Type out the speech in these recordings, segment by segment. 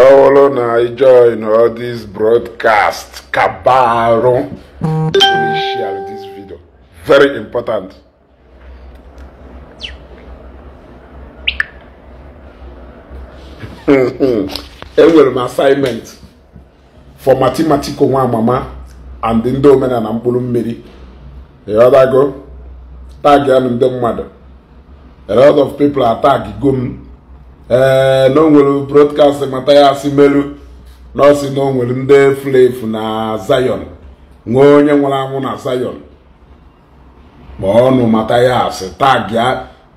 ọ bụrụ na ị join all this broadcast kabarụ share this video very important enwere m assignment for mathematical nwa amama and ndị omenala mkpụrụ mmiri tag ya na ndị mmadụ a lot of people are atag go m Eh, na o nwere broadcast mata ya si melu na ọ na o nwere ndị na zayọn nwee onye nwụrụ anwụ na zayọn ma ọnụ Mathias taa bịa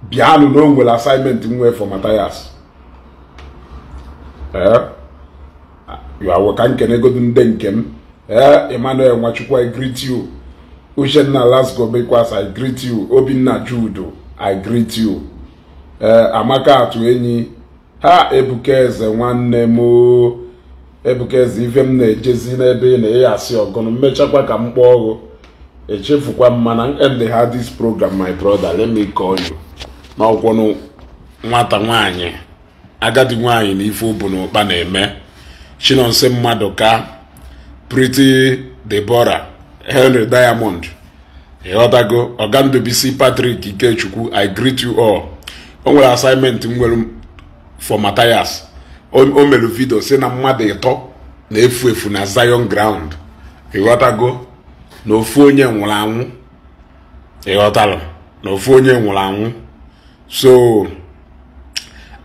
bịanụ na o nwere assignment nwefu Mathias ka nkenegodu nde nke m ee Emmanuel Nwachukwu I greet you Uchenna Lasgo Bekwas I greet you Obinna Judo I greet you ee eh, Amaka atụ enyi ha ebuka eze nwanne m ebuka eze ife m na-ejezi n'ebe ị na-eyi asị ọgụnụ mmechakwa ka m kpọọ ọgụ echefukwa m mana ha dis program my brother let me call you n'ọkwụnụ nwata nwanyị agadi nwanyị na ife ụbụ na ụkpa na-eme chinonso mmadụ ka Pretty debora Henry Diamond ịghọtago ọgandubisi Patrick Ikechukwu I greet you all o nwere assignment m nwere for Matthias o mere vidio si na mmadụ ịtọ na-efu efu na Zion ground ịghọtago na ofu onye nwụrụ anwụ ịghọtalụ na ofu onye nwụrụ anwụ so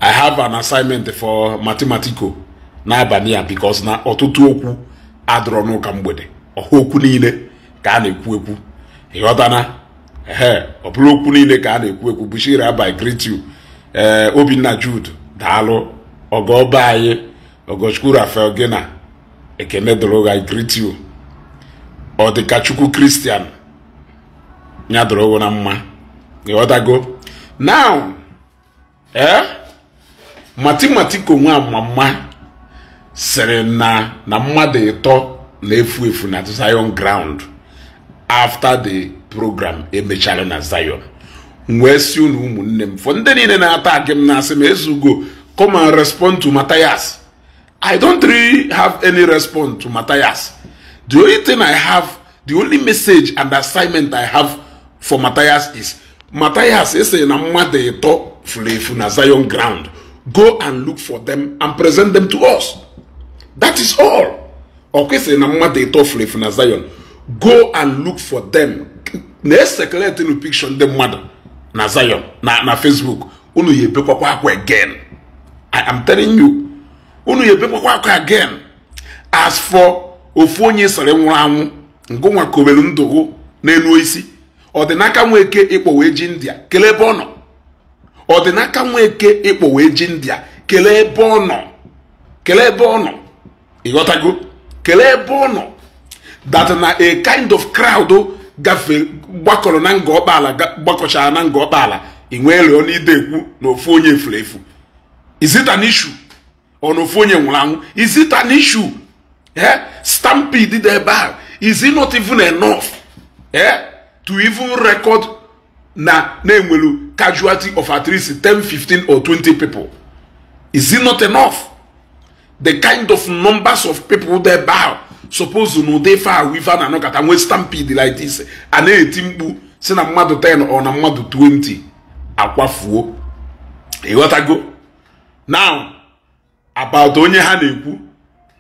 I have an assignment for matematico n'abalị a because na ọtụtụ okwu adọrọ n'ụka mgbede ọha okwu niile ka a na-ekwu ekwu ịghọtana na ọ bụrụ okwu niile ka a na-ekwu ekwu Bushira by greet you ee eh, Obinna Jude daalụ ọgọ be anyị ogochukwu rafael gina ekene doroga greet you ọ dịka chukwu kristian ya na mma ịghọtago now ee eh, matimatiko nwa mama sịrị na na mmadụ ịtọ na-efu efu na zion ground after the program emechara na zion m wee si unu ụmụnne m fọ ndị niile na-ata agị m na-asị m ezugo come and respond to Matthias I don't really have any response to Matthias the only thing I have the only message and assignment I have for Matthias is Matthias ese na mmadụ ịtọ furu efu na Zion ground go and look for them and present them to us that is all ọkwesịrị na mmadụ ịtọ furu efu na Zion go and look for them na-esekeletinu pikshọ ndị mmadụ na Zion na na Facebook unu ya ebekwakwa akwa again I am telling you unu ya ebekwakwa akwa again as for ofu onye sọrọ nwụrụ anwụ ngụnwa kobelu ndụgụ n'elu isi ọdịnaka nweke ịkpọwe ji ndịa kelee ebe ọ nọ ọdịnaka nweke ịkpọwe ji ndịa kelee ebe ọ nọ kelee ebe ọ nọ ịghọtago kelee ebe ọ nọ that na a kind of crowd gafe gbakọrọ na nga ọkpaala gbakọchara na nga ọkpaala ị nwee lụọ n'ide ekwu na ofu onye efuru efu izita n'ishu ọ na ofu onye nwụrụ anwụ izita n'ishu ee stampede dị ebe a is not even enough ee to even record na na-enwelu casualty of at least 10 15 or 20 people is it not enough the kind of numbers of people dị ebe ahụ suppose na dị ife ahụ ife a na-anọkọta nwee stampede like this a na-eti mkpu si na mmadụ 10 ọ na mmadụ 20 akwafuo ịghọtago now about onye ha na-ekwu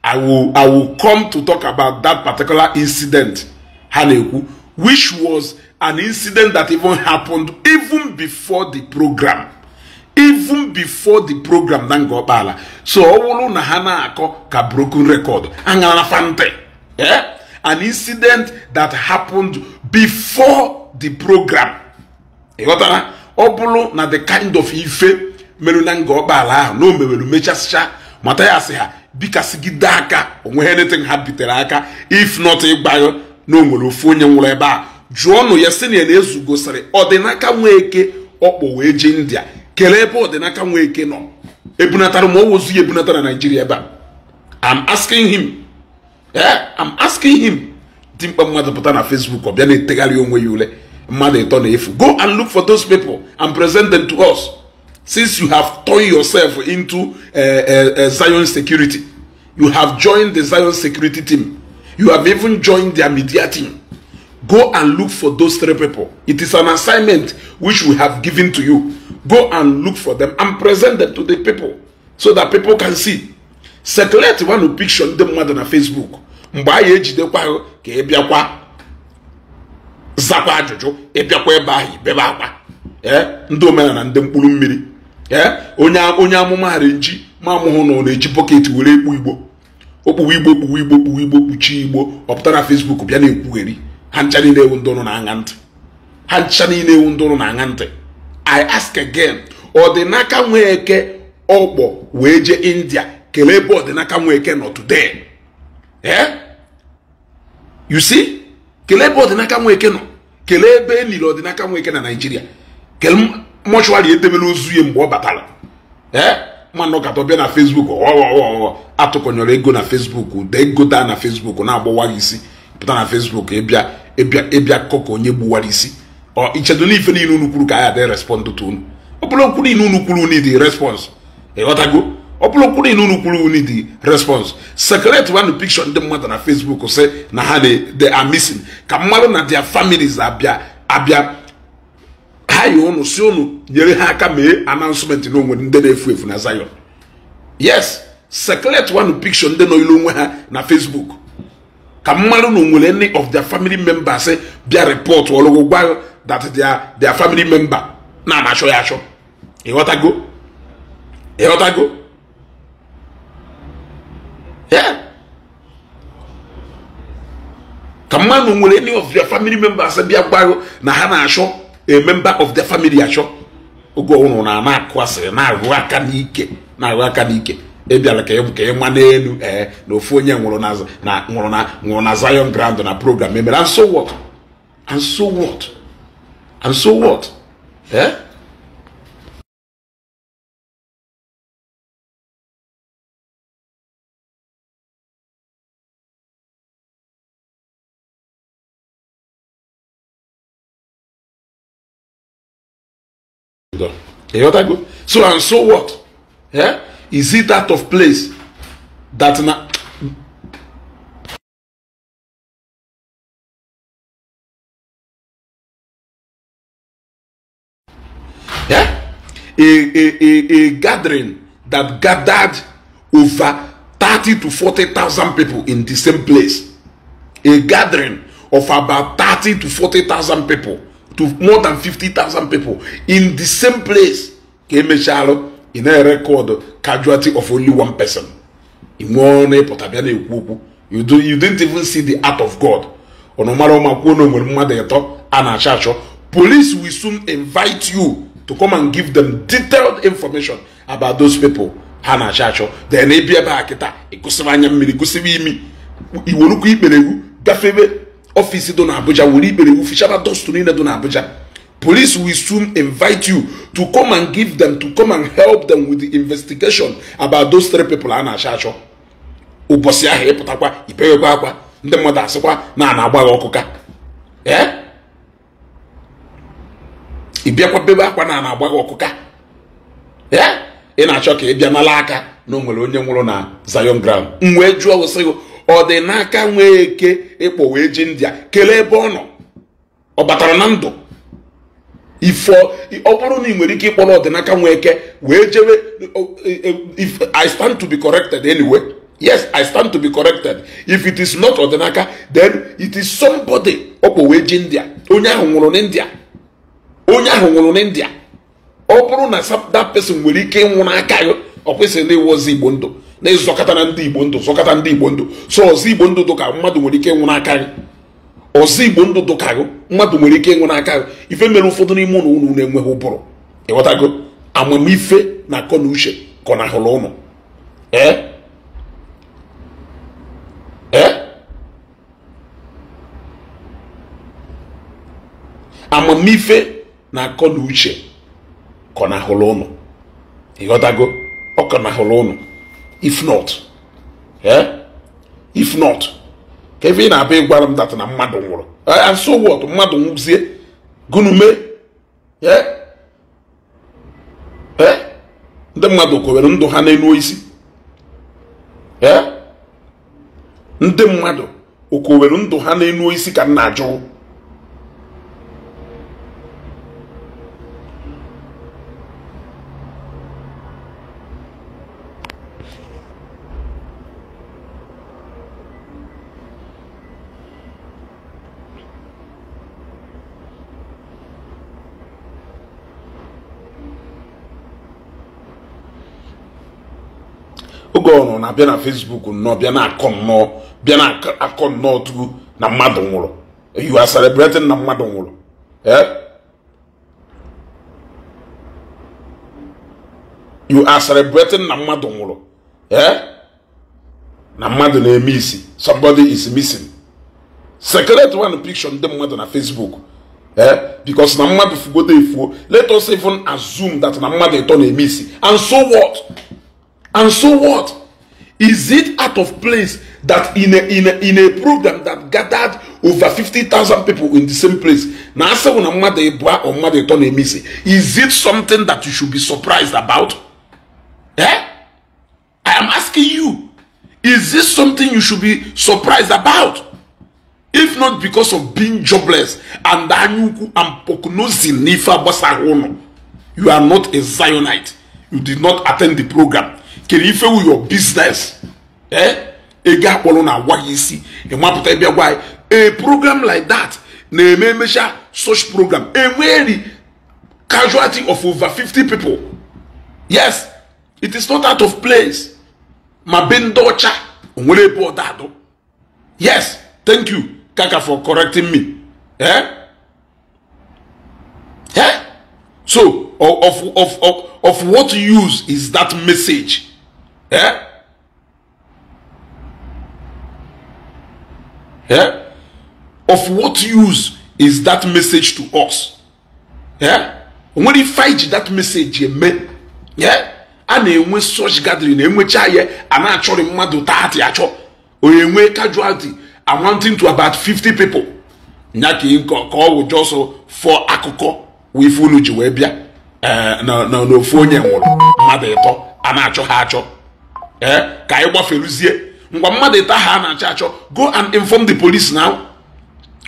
I will, I will come to talk about that particular incident ha na-ekwu which was an incident that even happened even before the program even before the program na nga so ọ bụrụ na ha na-akọ ka broken record aṅara na fante Yeah? An incident that happened before the program. ịghọtara ọ bụrụ na the kind of ife meru na nga ọgbaala ahụ na o mewere mechasịcha mata ya asị ha bikasịgide aka onwe anything ha bitere aka if not ịgbayo na o nwere ofu onye nwụrụ ebe a jụọnụ ya sị na ya na-ezugosịrị ọdịnaka nweke ọkpọ wee jee india kelee ebe ọdịnaka nweke nọ ebunatara ma ọ wozu ya ebunata na naijiria ebe a am asking him Eh, I'm asking him dimkpa mmadụ pụta Facebook or bia bịa na-etegharị onwe ya ule mmadụ go and look for those people and present them to us since you have turned yourself into uh, Zion security you have joined the Zion security team you have even joined their media team go and look for those three people. It is an assignment which we have given to you. Go and look for them and present them to the people so that people can see. sekuleti wanụ pikshọ ndị mmadụ na fesbuk mgbe anyị ejidekwa ahụ ka ị bịakwa zakwa ajụjụ ịbịakwa ebe ahụ ibebe akwa eh, ndị omenala ndị mkpụrụ mmiri ee eh, onye onye amụma hara nji ma amụhụ na ọ na-eji bọket were ekpu igbo okpuwe igbo kpuwe igbo kpuwe igbo kpuchie igbo ọpụta na fesbuk bịa na-ekwugheri ha ncha niile ewu ndị na-aṅa ntị ha ncha niile ewu ndị na-aṅa ntị i ask again ọ dị n'aka nwee eke ọkpọ wee jee india kelee ebe ọdịnaka nwa eke nọ today eh you see kelee ebe ọdịnaka nwa nọ kelee ebe e liri ọdịnaka nwa na naijiria kele mọchụarị edebela ozu ya mgbe ọ batara ee mmanụ ọkatọ bịa na fesbuk ọghọghọghọ atụkọnyọrọ ego na fesbuk de ego daa na fesbuk na-agbawa isi pụta na fesbuk ịbịa ịbịa ịbịa akụkọ onye gbuwara isi ọ ichedo n'ife niile unu kwuru ka a ya adị respond tụ unu ọ bụrụ okwu niile unu kwuru unu dị respons ịghọtago ọ bụrụ kwuru unu kwuru unu di response secretary wanụ picture ndị mmadụ na facebook sị na ha they are missing ka mmadụ na their families abịa abịa ha yi unu si unu nyere ha aka mee announcement na onwere ndị na-efu efu na zion yes secretary wanụ picture ndị nọ ilu onwe ha na facebook ka mmadụ na onwere any of their family members bịa report ọlụgwụ gwa that their their family member na-anachọ ya achọ ịghọtago ịghọtago ka mmanụ nwere any of their family members bịa gwa na ha na-achọ a member of their family achọ oge ọhụrụ na na-akụ na-arụ aka n'ike na-arụ aka n'ike ebiala ka ị ma n'elu ee na ofu onye nwụrụ na nwụrụ e eh, na Zion Grand na program emere and so what eh? God. You So and so what? Yeah? Is it that of place that now? Yeah? A, a, a, a gathering that gathered over 30 to 40,000 people in the same place. A gathering of about 30 to 40,000 people to more than 50,000 people in the same place ka emechalụ in na record casualty of only one person ị nwee na-ekwu okwu you didn't even see the art of God ọnụ mara ụma mmadụ a na-achọ achọ police will soon invite you to come and give them detailed information about those people ha na-achọ achọ then ịbịa ebe a kịta ịgụsịrị anya mmiri gụsịrị imi iwerukwu ikpere egwu gafebe ọfịs dị n'Abuja were ikpere wufichara dust niile dị n'Abuja police will soon invite you to come and give them to come and help them with the investigation about those three people a na-achọ achọ ụbọchị ahụ ịpụtakwa ipeghekwa akwa ndị mmadụ asịkwa na a na-agba gị ọkụ ịbịakwa bebe akwa na a na-agba gị ị na-achọ ka ị bịa nala aka na onwere nwere onye nwụrụ na Zion ground m wee jụọ wụsị gị ọ dị n'aka nwee eke ịkpọ wee ji a kelee ebe ọ nọ ọ batara na ndụ ifo ọ bụrụ na ị nwere ike ịkpọrọ ọdịnaka nwee eke wee jewe if i stand to be corrected anyway yes i stand to be corrected if it is not ọdịnaka then it is somebody ọkpọ wee ji a onye ahụ nwụrụ n'india onye ahụ nwụrụ n'india ọ bụrụ na that person nwere ike ịnwụ n'aka ya ọ kwesịrị ịwụzi igbo ndụ na-ezọkọta na ndị igbo ndụ zọkọta ndị igbo ndụ so ọzọ igbo ndụ dụka mmadụ nwere ike ịnwụ n'aka gị ọzọ igbo ndụ dụka gị mmadụ nwere ike ịnwụ n'aka gị ife mere ụfọdụ n'ime ụlọ ụnụ na-enweghị ụbụrụ ịghọtago amamife na akọ na uche kọ na hụrụ ụnụ ee ee amamife na akọ na uche kọ na hụrụ ụnụ ịghọtago ọ kọ na hụrụ ụnụ if not eh? if not ka ebe na-abịa ịgwara m data na mmadụ nwụrụ eh, so what mmadụ nwụzie gụnume eh? ndị mmadụ kowere ndụ ha n'elu isi ndị mmadụ okowere ndụ ha n'elu isi ka m na-ajụ oge ọ nọ na-abịa na Facebook nnọọ bịa na-akọ nnọọ bịa na-akọ nnọọ tupu na mmadụ nwụrụ you are celebrating na mmadụ nwụrụ eh you are celebrating na mmadụ nwụrụ eh? na mmadụ na-eme isi somebody is missing secret one picture ndị mmadụ na Facebook eh because na mmadụ fugodo efuo let us even assume that na mmadụ ịtọ na-eme isi and so what And so what? Is it out of place that in a, in a, in a program that gathered over 50,000 people in the same place, Is it something that you should be surprised about? Eh? I am asking you, is this something you should be surprised about? If not because of being jobless and nifa you are not a Zionite. You did not attend the program. kere ife wu your business eh ego akpọrọ na agwa ya isi ịmapụta ebe gwa ya a program like that na-eme emecha such program enweri casualty of over fifty people yes it is not out of place ma be ndị ọcha onwere ebe ọda adụ yes thank you kaka for correcting me eh? Eh? so of, of, of, of what use is that message ee ee of what use is that message to us ee onwere ife anyị that message eme ee a na-enwe such gathering enwechi ya a na-achọrị mmadụ taati achọ onye nwee casualty amounting to about 50 people nya ka ọ wụ jọsọ fọ akụkọ ife unu ji wee bịa na ofu onye nwụrụ mmadụ ịtọ a na-achọ ha achọ ee eh, ka anyị gbaferuzie ngwa mmadụ ịta ha na-achọ achọ go and inform the police now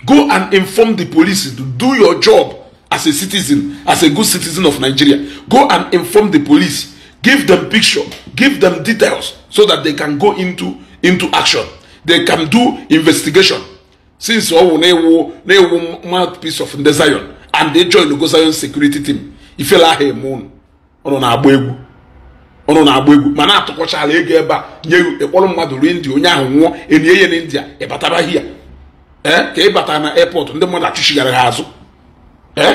go and inform the police to do your job as a citizen as a good citizen of nigeria go and inform the police give them picture give them details so that they can go into into action they can do investigation since ọ wụ na-ewu na-ewu mouthpiece of ndị and they join the go zion security team ifela aha eme unu ọ nọ na-agba egwu ụnụ na-agba egwu ma na-atụkọchala ego ebe a nye ịkpọrọ mmadụ ruo india onye ahụ nwụọ enye ya na india ịbatara ya ee ka ị bata na airport ndị mmadụ achụchigara ha azụ ee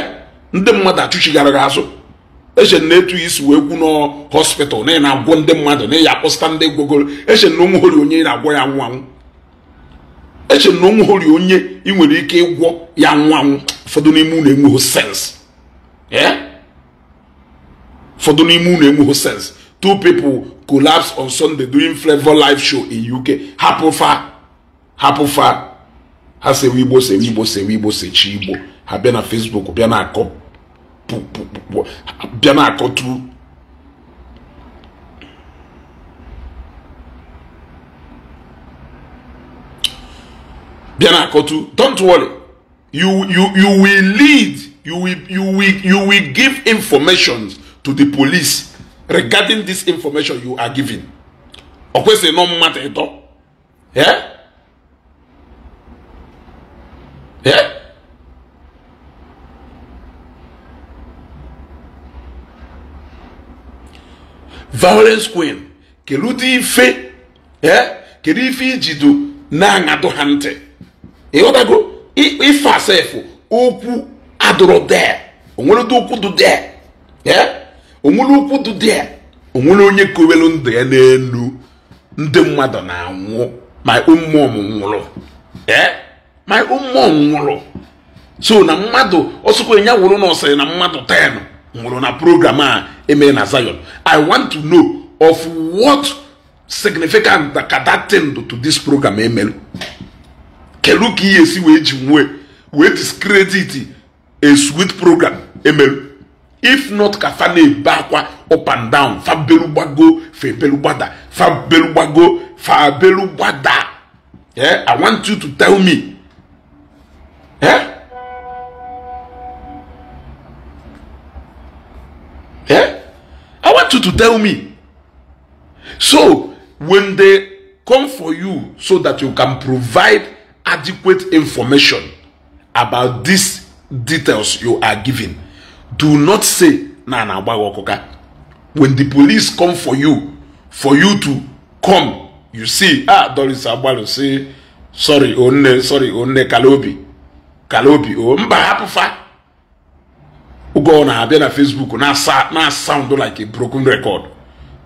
ndị mmadụ achụchigara ha azụ eche na etu isi wee kwu nọ na ị na-agwọ ndị mmadụ na ịya akpọsịta ndị gwogoro eche na onwe hori onye ị na-agwọ ya nwụ anwụ eche na onwe hori onye ị nwere ike ịgwọ ya nwụ anwụ ụfọdụ n'ime unu enweghị sens ee ụfọdụ n'ime unu enweghị sens two people collapse on Sunday during Flavor live show in UK. Hapufa, fa Ha se Igbo, se Igbo, se Igbo, se Ha bịa na Facebook, bịa na-akọ bịa na-akọtu bịa don't worry you you you will lead you will you will you will give informations to the police regarding this information you are giving of course no matter kwesịrị all, yeah, yeah. violence queen fe, kedu ife kedu ife ijido na if ha ntị ịghọtago ife asefụ de, adụrụ dee onweredo okwu de, yeah. onwere ụkwụ dị dị onwere onye kowelu ndụ ya n'elu ndị mmadụ na-anwụ ma mmụọ nwụrụ ma eh? mmụọ nwụrụ so na mmadụ ọsụkwa ya wụrụ na ọsịrị na mmadụ 10 nwụrụ na program a emere na Zion i want to know of what significant ka that thing do to this program emelu kelu ka ihe esi wee ji nwee wee discredit a sweet program emelu if not ka fa na-ebe akwa up and down fa belugbago fa ebelugbaga fa belugbago fa belugbaga Yeah, i want you to tell me Yeah, yeah. i want you to tell me so when they come for you so that you can provide adequate information about these details you are giving do not say na na-agba gị when the police come for you for you to come you see ah Doris agbalụ say sorry onne sorry onne kalobi kalobi o oh, mba hapụfa ụgwọ na-abịa na Facebook na sound like a broken record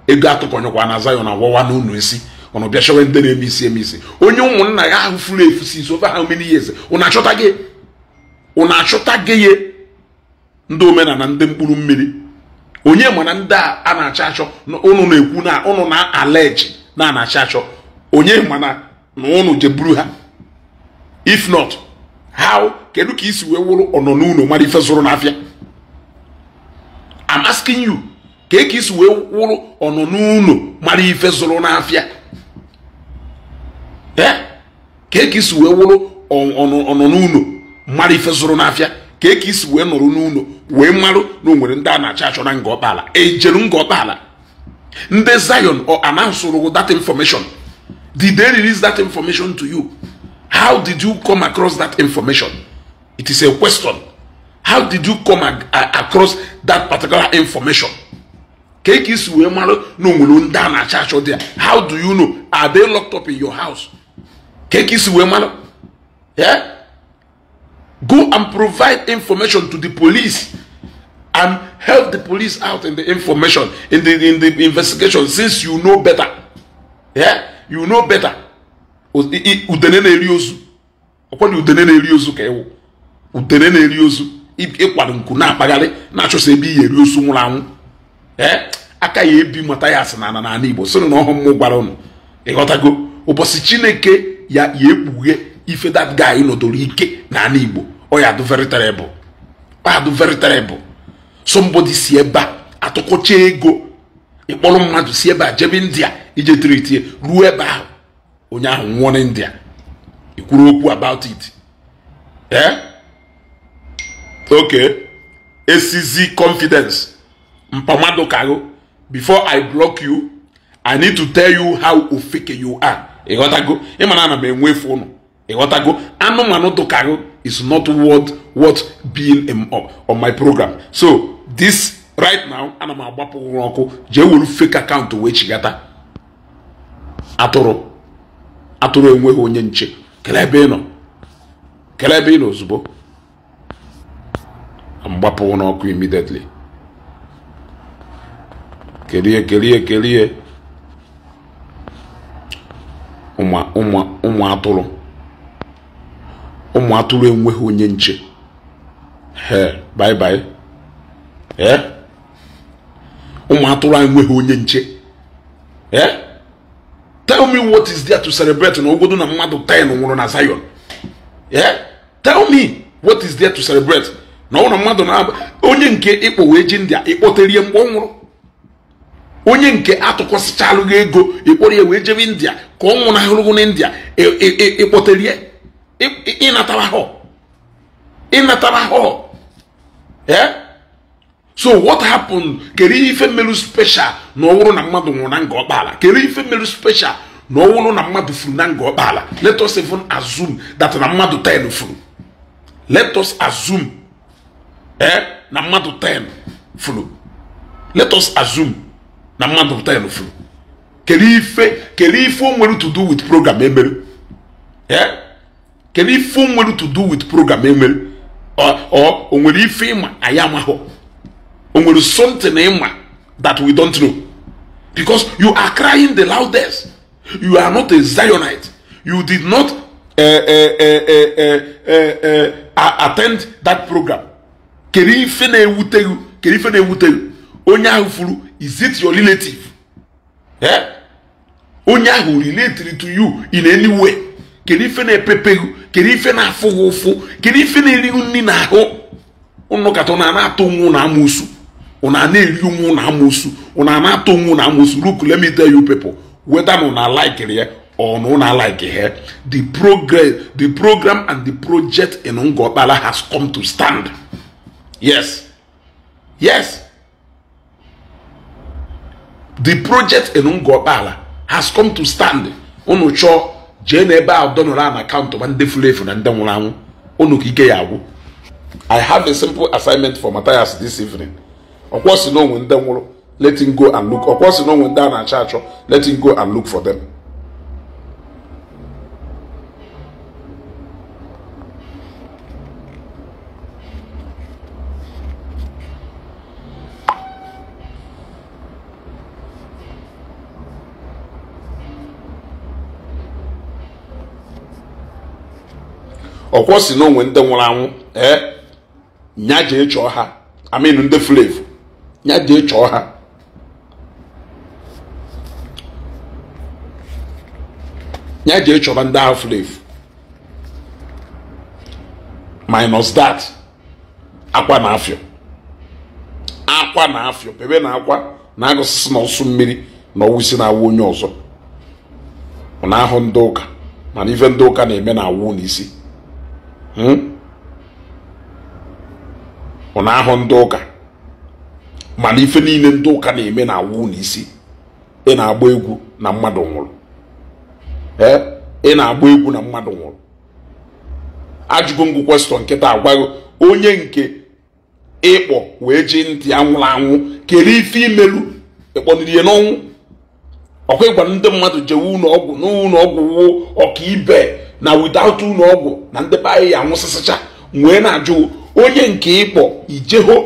ego atụkọnyekwa na Zion agwawa na unu esi ọnụ bịa chọwe ndị na-eme isi eme isi onye ụmụnna ya ahụ furu efu si over how many years ụnụ achọta gị ụnụ achọta gị ndị omenala ndị mkpụrụ mmiri onye mana ndị a na-achọ achọ ụnụ na-ekwu na ụnụ na-aleji na na-achọ achọ onye mana na ụnụ jeburu ha if not how kedu ka isi wee wụrụ ọnọ n'ụlọ mara ife zụrụ n'afịa I'm asking you ka eke isi wee wụrụ ọnọ n'ụlọ mara ife zụrụ n'afịa ee eh? ka eke isi wee wụrụ ọnọ n'ụlọ mara ife zụrụ n'afịa ka eke isi wee nọrọ n'ụlọ wee marụ na o nwere ndị a na-achọ achọra nga ọkpala ejeru nga ọkpala ndị Zion or announce that information did they release that information to you how did you come across that information it is a question how did you come across that particular information ka ị isi wee marụ na o ndị a na achọ dị ya how do you know are they locked up in your house ka ị isi wee marụ yeah Go and provide information to the police and help the police out in the information, in the, in the investigation, since you know better. Yeah? You know better. Udene na-eri ozu. Ọkwa na udene na-eri ozu ka ewu. Udene na-eri ozu. Ịkwado nku na-akpagharị na-achọsa ebe iyi eri ozu nwụrụ anwụ. Ee? Aka ya ebi mata ya asị n'ala n'ala Igbo. Sịrị na ọhụm mụ gwara ụnụ. Ịghọtago? Ụbọchị Chineke ya ya ekpughe ife that guy nọdụrụ ike n'ala Igbo. ọ ya adụ very terrible ọ ya adụ very terrible somebody si ebe a ego ịkpọrọ mmadụ si ebe a jebe india ije tiritie ruo ebe ahụ onye ahụ nwụọ na india ikwuru okwu about it ee eh? okay esizi confidence mpamado kago before i block you i need to tell you how ofeke you are ịghọtago ịmana ana m enwefu ụnụ ịghọtago anụmanụ dụkago is not worth worth being um, on my program so this right now ana m agbapụ ụra ọkụ jee were fake account wee chigata atụrụ atụrụ enweghị onye nche kelee ebe ị nọ kelee ebe ị nọ ozugbo n'ọkụ immediately kelie kelie kelie ụmụ atụrụ ụmụ atụrụ enweghị onye nche bye-bye ụmụ atụrụ enweghị onye nche tell me what is there to celebrate na na mmadụ 10 nwụrụ na Zion tell me what is there to celebrate na ọ na mmadụ onye nke ịkpọ wee ji ndị a mgbe onye nke India ka ọ na India ịnatara ahụhụ ịnatara ahụhụ so what happened kere ife meru special na ọwụrụ na mmadu nwụrụ na nga ọkpala kere ife meru special na ọwụrụ na mmadu furu na nga ọkpala let us even assume that na mmadu 10 furu let us assume eh na mmadu 10 furu let us assume na mmadu 10 furu kere ife kere ife o nwere to do with program emere eh kedu ife o nwere to do with program enwere ọ o nwere ife ịma anyị amahụ o nwere something ịma eh, that we don't know because you are crying the loudest you are not a zionite you did not uh, uh, uh, attend that program kedu ife na-ewute gị kedu ife na-ewute gị onye ahụ furu is it your relative eh? onye ahụ related to you in any way kedu ife na-epepe gị kedu ife na-afụ gị ụfụ kedu ife na eri nri na ahụ ụnụ kata ụna na-atụ nwu na amụsụ ụna na-eri nwu na amụsụ ụna na-atụ nwu na amụsụ look let me tell you people whether na una like ya or na una like ya the progress the program and the project in Ngokpala has come to stand yes yes the project in Ngokpala has come to stand unu chọọ jee ebe ahụ dọnọrọ a na akaụntụ ma ndị furu efu na ndị nwụrụ anwụ unu ka ike ya agwụ i have a simple assignment for Matthias this evening ọkwọ si n'onwe ndị nwụrụ letting go and look ọkwọ si n'onwe ndị a na-achọ achọ letting go and look for them. ọkwọ si n'onwe onwe ndị nwụrụ anwụ ee nya jee chọọ ha amin ndị flevu nya jee chọọ ha nya jee chọba ndị ahụ flevu minus that akwa na afịọ akwa na afịọ bebe na akwa na agụsịsị na ọsụ mmiri na ọwụsi na-awụ onye ọzọ ọ na-ahụ ndị ụka mana ife ndị ụka na-eme na awụ n'isi Hmm? na-ahụ ndị ụka mana ife niile ndị ụka na-eme na awụ n'isi ị na-agba egwu na mmadụ nwụrụ ị na-agba egwu na mmadụ nwụrụ ajụgo ngụ kwestọn nkịta agwaghị onye nke ịkpọ wee ji ntị anwụrụ anwụ kere ife imelu ịkpọnirie n'ọnwụ ọkwa ịgwa ndị mmadụ jewe ụlọ ọgwụ n'ụlọ ọgwụ ọkaibe na without ụlọ ọgwụ na ndị be anyị ya anwụsịsịcha wee na-ajụ onye nke ịkpọ ijeho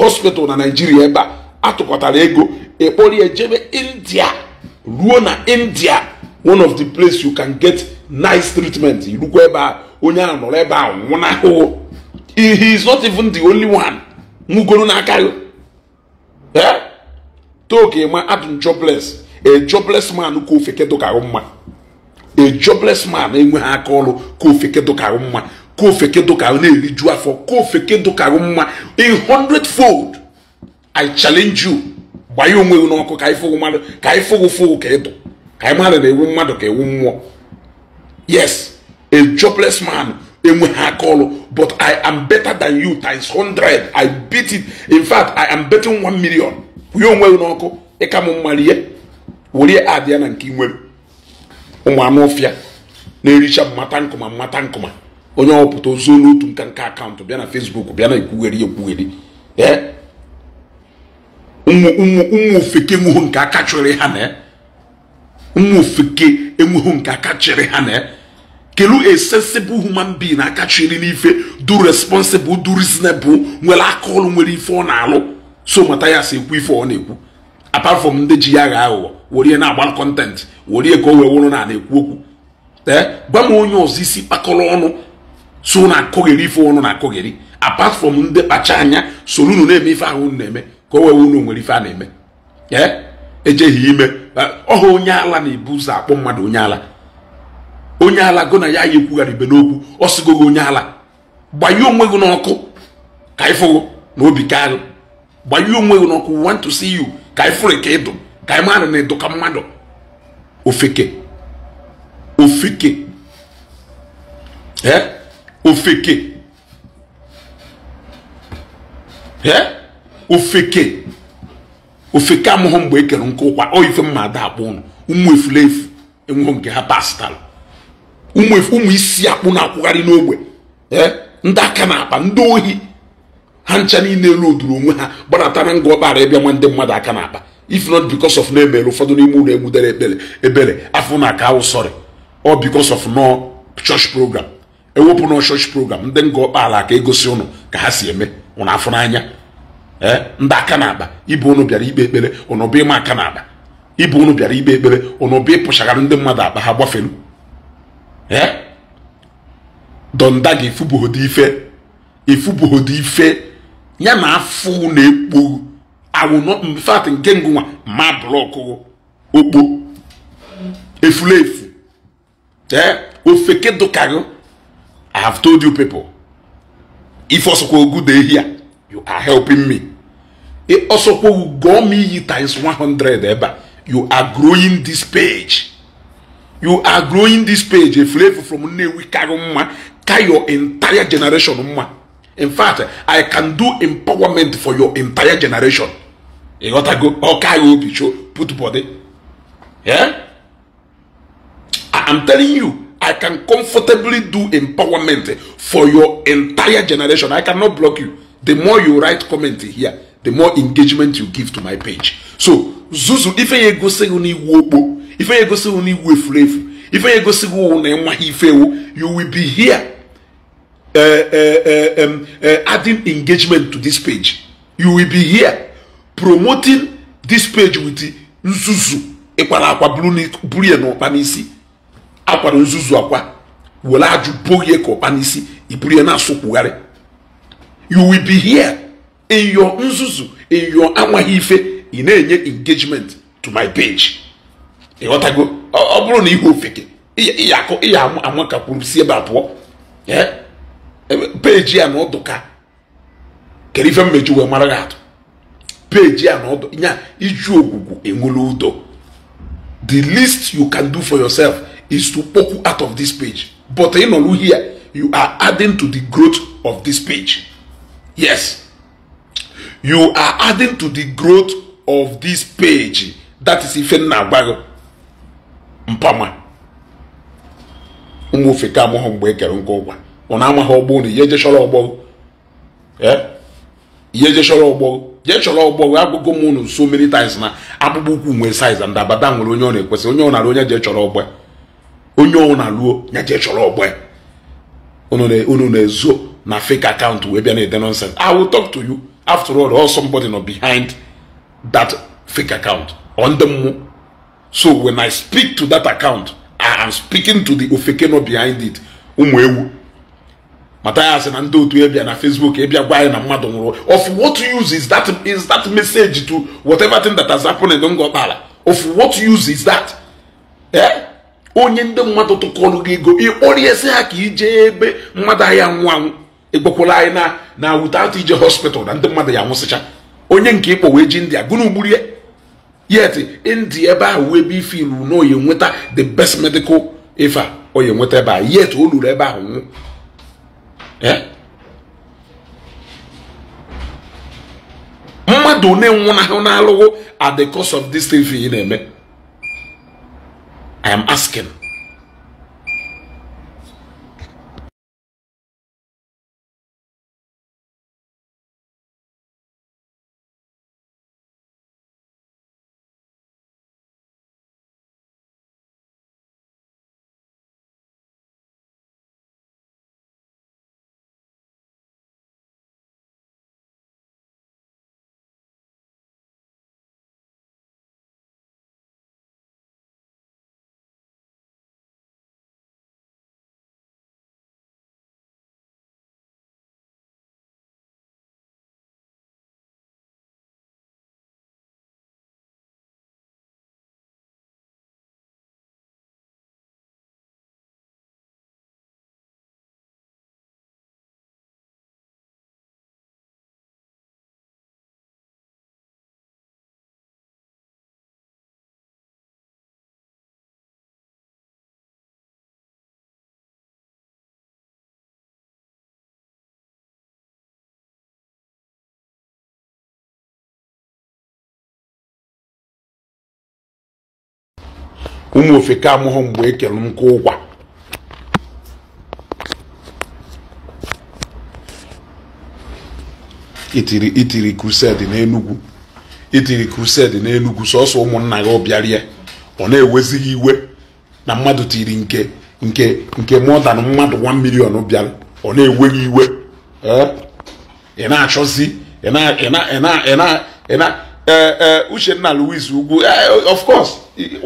hospital na naijiria ebe a atụkọtara ego ekporie jebe india ruo na india one of the place you can get nice treatment irukwa ebe a onye a nọrọ ebe a nwụnahụhụ he is not even the only one nwugoro n'aka gị eh? toke adụ jobles a jobless man ka ka ahụ mma a jobless man enweghị aka ọrụ ka ofeke dụkarụ mma ka ofeke dụkarụ na-eriju afọ ka ofeke dụkarụ mma a hundred fold i challenge you gbanye onwe gị n'ọkụ ka anyị fụrụ mmadụ ka anyị fụrụ fụrụ ka ịdụ ka anyị mmadụ na-ewu mmadụ ka ewu mmụọ yes a jobless man enweghị aka ọrụ but i am better than you times hundred, i beat it in fact i am betting one million kwụnye onwe gị n'ọkụ ịka m mma rie were adịa na nke ị nwere ụmụ anụ ọfịa na-ericha mmata nkụma mmata nkụma onye ọpụta ozu n'otu nka akaụntụ bịa na fesbuk bịa na ekwugheri ekwugheri ụmụ ofeke enweghị nke aka chịrị ha na ụmụ ofeke enweghị nke aka chịrị ha na kelu a human being aka chịrị n'ife du responsible du reasonable nwere aka ọlụ nwere ife ọ na-alụ so mata ya si ekwu ife ọ na-ekwu apart from ndị ji ya agha aghụghọ werie na-agbara kọntentị werie ka o wee na na-ekwu okwu ee gwa onye ọzọ isi kpakọrọ ọnụ tụ na akụgheri ife ọnụ na akụgheri apart from ndị kpacha anya soro unu na-eme ife ahụ unu na-eme ka o wee unu nwere ife a na-eme ee ejeghị ime ọha onye ala na-ebu ụzọ akpọ mmadụ onye ala onye ala gụ na ya ya ekwugharị ibe n'okwu ọ sịgo gị onye ala gbanye onwe gị n'ọkụ ka ịfụgo na obi ka agụ gbanye onwe gị n'ọkụ want to see you ka ịfụrụ ka ịdụ taimana na-edoka mmadụ ofeke ofeke eh? Eh? ofeke ofeke ofeke amụghị mgbe ekere nke ụkwa ọ ife mma ada akpụ ụnụ ụmụ efulefu enweghị nke ha pastalụ ụmụ isi akpụ na-akwụgharị n'ogbe eh? ndị aka na-akpa ndị ohi ha ncha niile elu oduru onwe ha gbanatara nga ọbara ịbịa nwa ndị mmadụ aka na-akpa if not because of na emere ụfọdụ n'ime ụlọ egbudere ekpere ebere afọ na aka awụsọrị ọ because of no church program ewepụ nọ church program ndị nga ọkpaala ka egosi ụnụ ka ha si eme ụnụ afọ n'anya eh? ndị aka na-akpa ibe ụnụ bịara ikpe ekpere ụnụ bụ ịma aka na-akpa ibu ụnụ bịara ikpe ekpere ụnụ bụ ịpụchagara ndị mmadụ akpa ha gbafelu ee donda gị ife ifubughodi ife ya na afọ ekpo I will not in fact nkengu wa ma block oh, o ogbo efulefu eh ofeke dokago I have told you people if osokwa ogu dey here you are helping me e osokwa ugo me yi times 100 eba eh, you are growing this page you are growing this page efulefu from Nnewi kago mma ka your entire generation mma in fact i can do empowerment for your entire generation. ịghọtago ọka ya obi cho put body I'm telling you I can comfortably do empowerment for your entire generation I cannot block you the more you write comment here the more engagement you give to my page so zuzu ife ya egosighị n'iwu okpo ife ya egosighị n'iwu efurefu ife ya egosighị ụwụ na ife ewu you will be here uh, uh, uh, um, uh, adding engagement to this page you will be here promoting this page with nzuzu ịkwara akwa buru ya n'ọkpa n'isi akwara nzuzu akwa were ajụ boghie ka ọkpa n'isi iburu ya na-asụkwugharị you will be here in your nzuzu in your amaghị ife ị na-enye engagement to my page ịghọtago ọ bụrụ na ihe ofeke ka kwuru si ebe abụọ peji ya na ọdụka kedu ife mmeju wee mara gị atụ page ya na ọdụ ya iju ogwugwu enwere ụdọ the least you can do for yourself is to poke out of this page but ị nọrụ here you are adding to the growth of this page yes you are adding to the growth of this page that is ife nna agbaghị mpama ụmụ ofe ka amụghị mgbe e kere ụgwa ọ na-amaghị ọgbọ na ihe ejechọrọ ọgbọ eh? ihe ejechọrọ ọgbọ jee chọrọ ọgbọ wee agụgo m unu so many times na akpụkpọ ụkwụ nwee saiz ndị abada nwere onye ọ na-ekwesị onye ọ na-alụ onye je chọrọ ọgbọ onye ọ na-alụ ya je chọrọ ọgbọ unu na-ezo na fake account wee bịa na-ede nonsense i will talk to you after all or somebody no behind that fake account on the mụ so when i speak to that account i am speaking to the ofeke no behind it ụmụ ewu mata ya na ndị otu ebia na facebook ebia gwa anyị na mmadụ nwụrụ of what use is that is that message to whatever thing that has happened in ngọkpala of what use is that eh onye ndị mmadụ tụkọrọ gị ego ịkpọriesi ha ka ije ebe mmadụ ahịa nwụ anwụ ịgbakwala anyị na na without ije hospital na ndị mmadụ ya nwụsịcha onye nke ịkpọ wee ji india gụna ugburie yet india ebe ahụ wee ebe ife ilu na oyi nweta the best medical ife a oyi nweta ebe a yet o luru ebe ahụ nwụ Eh? mmadụ na-enwụnahụ n'alụghụ at the cost of this thing for you na-eme i am asking ụmụ ofeke amụghị mgbe ekele nkụ ụkwa itiri itiri krused n'enugwu itiri krused n'enugwu sọsọ ụmụnna gị ọbịarie ọ na-ewezighị iwe na mmadụ tiri nke nke nke mọdan mmadụ 1 million bịara ọ na-eweghị iwe ị na-achọzi ị na-ị na-ị na Eh, eh, uchenna louis ugwu eh, of course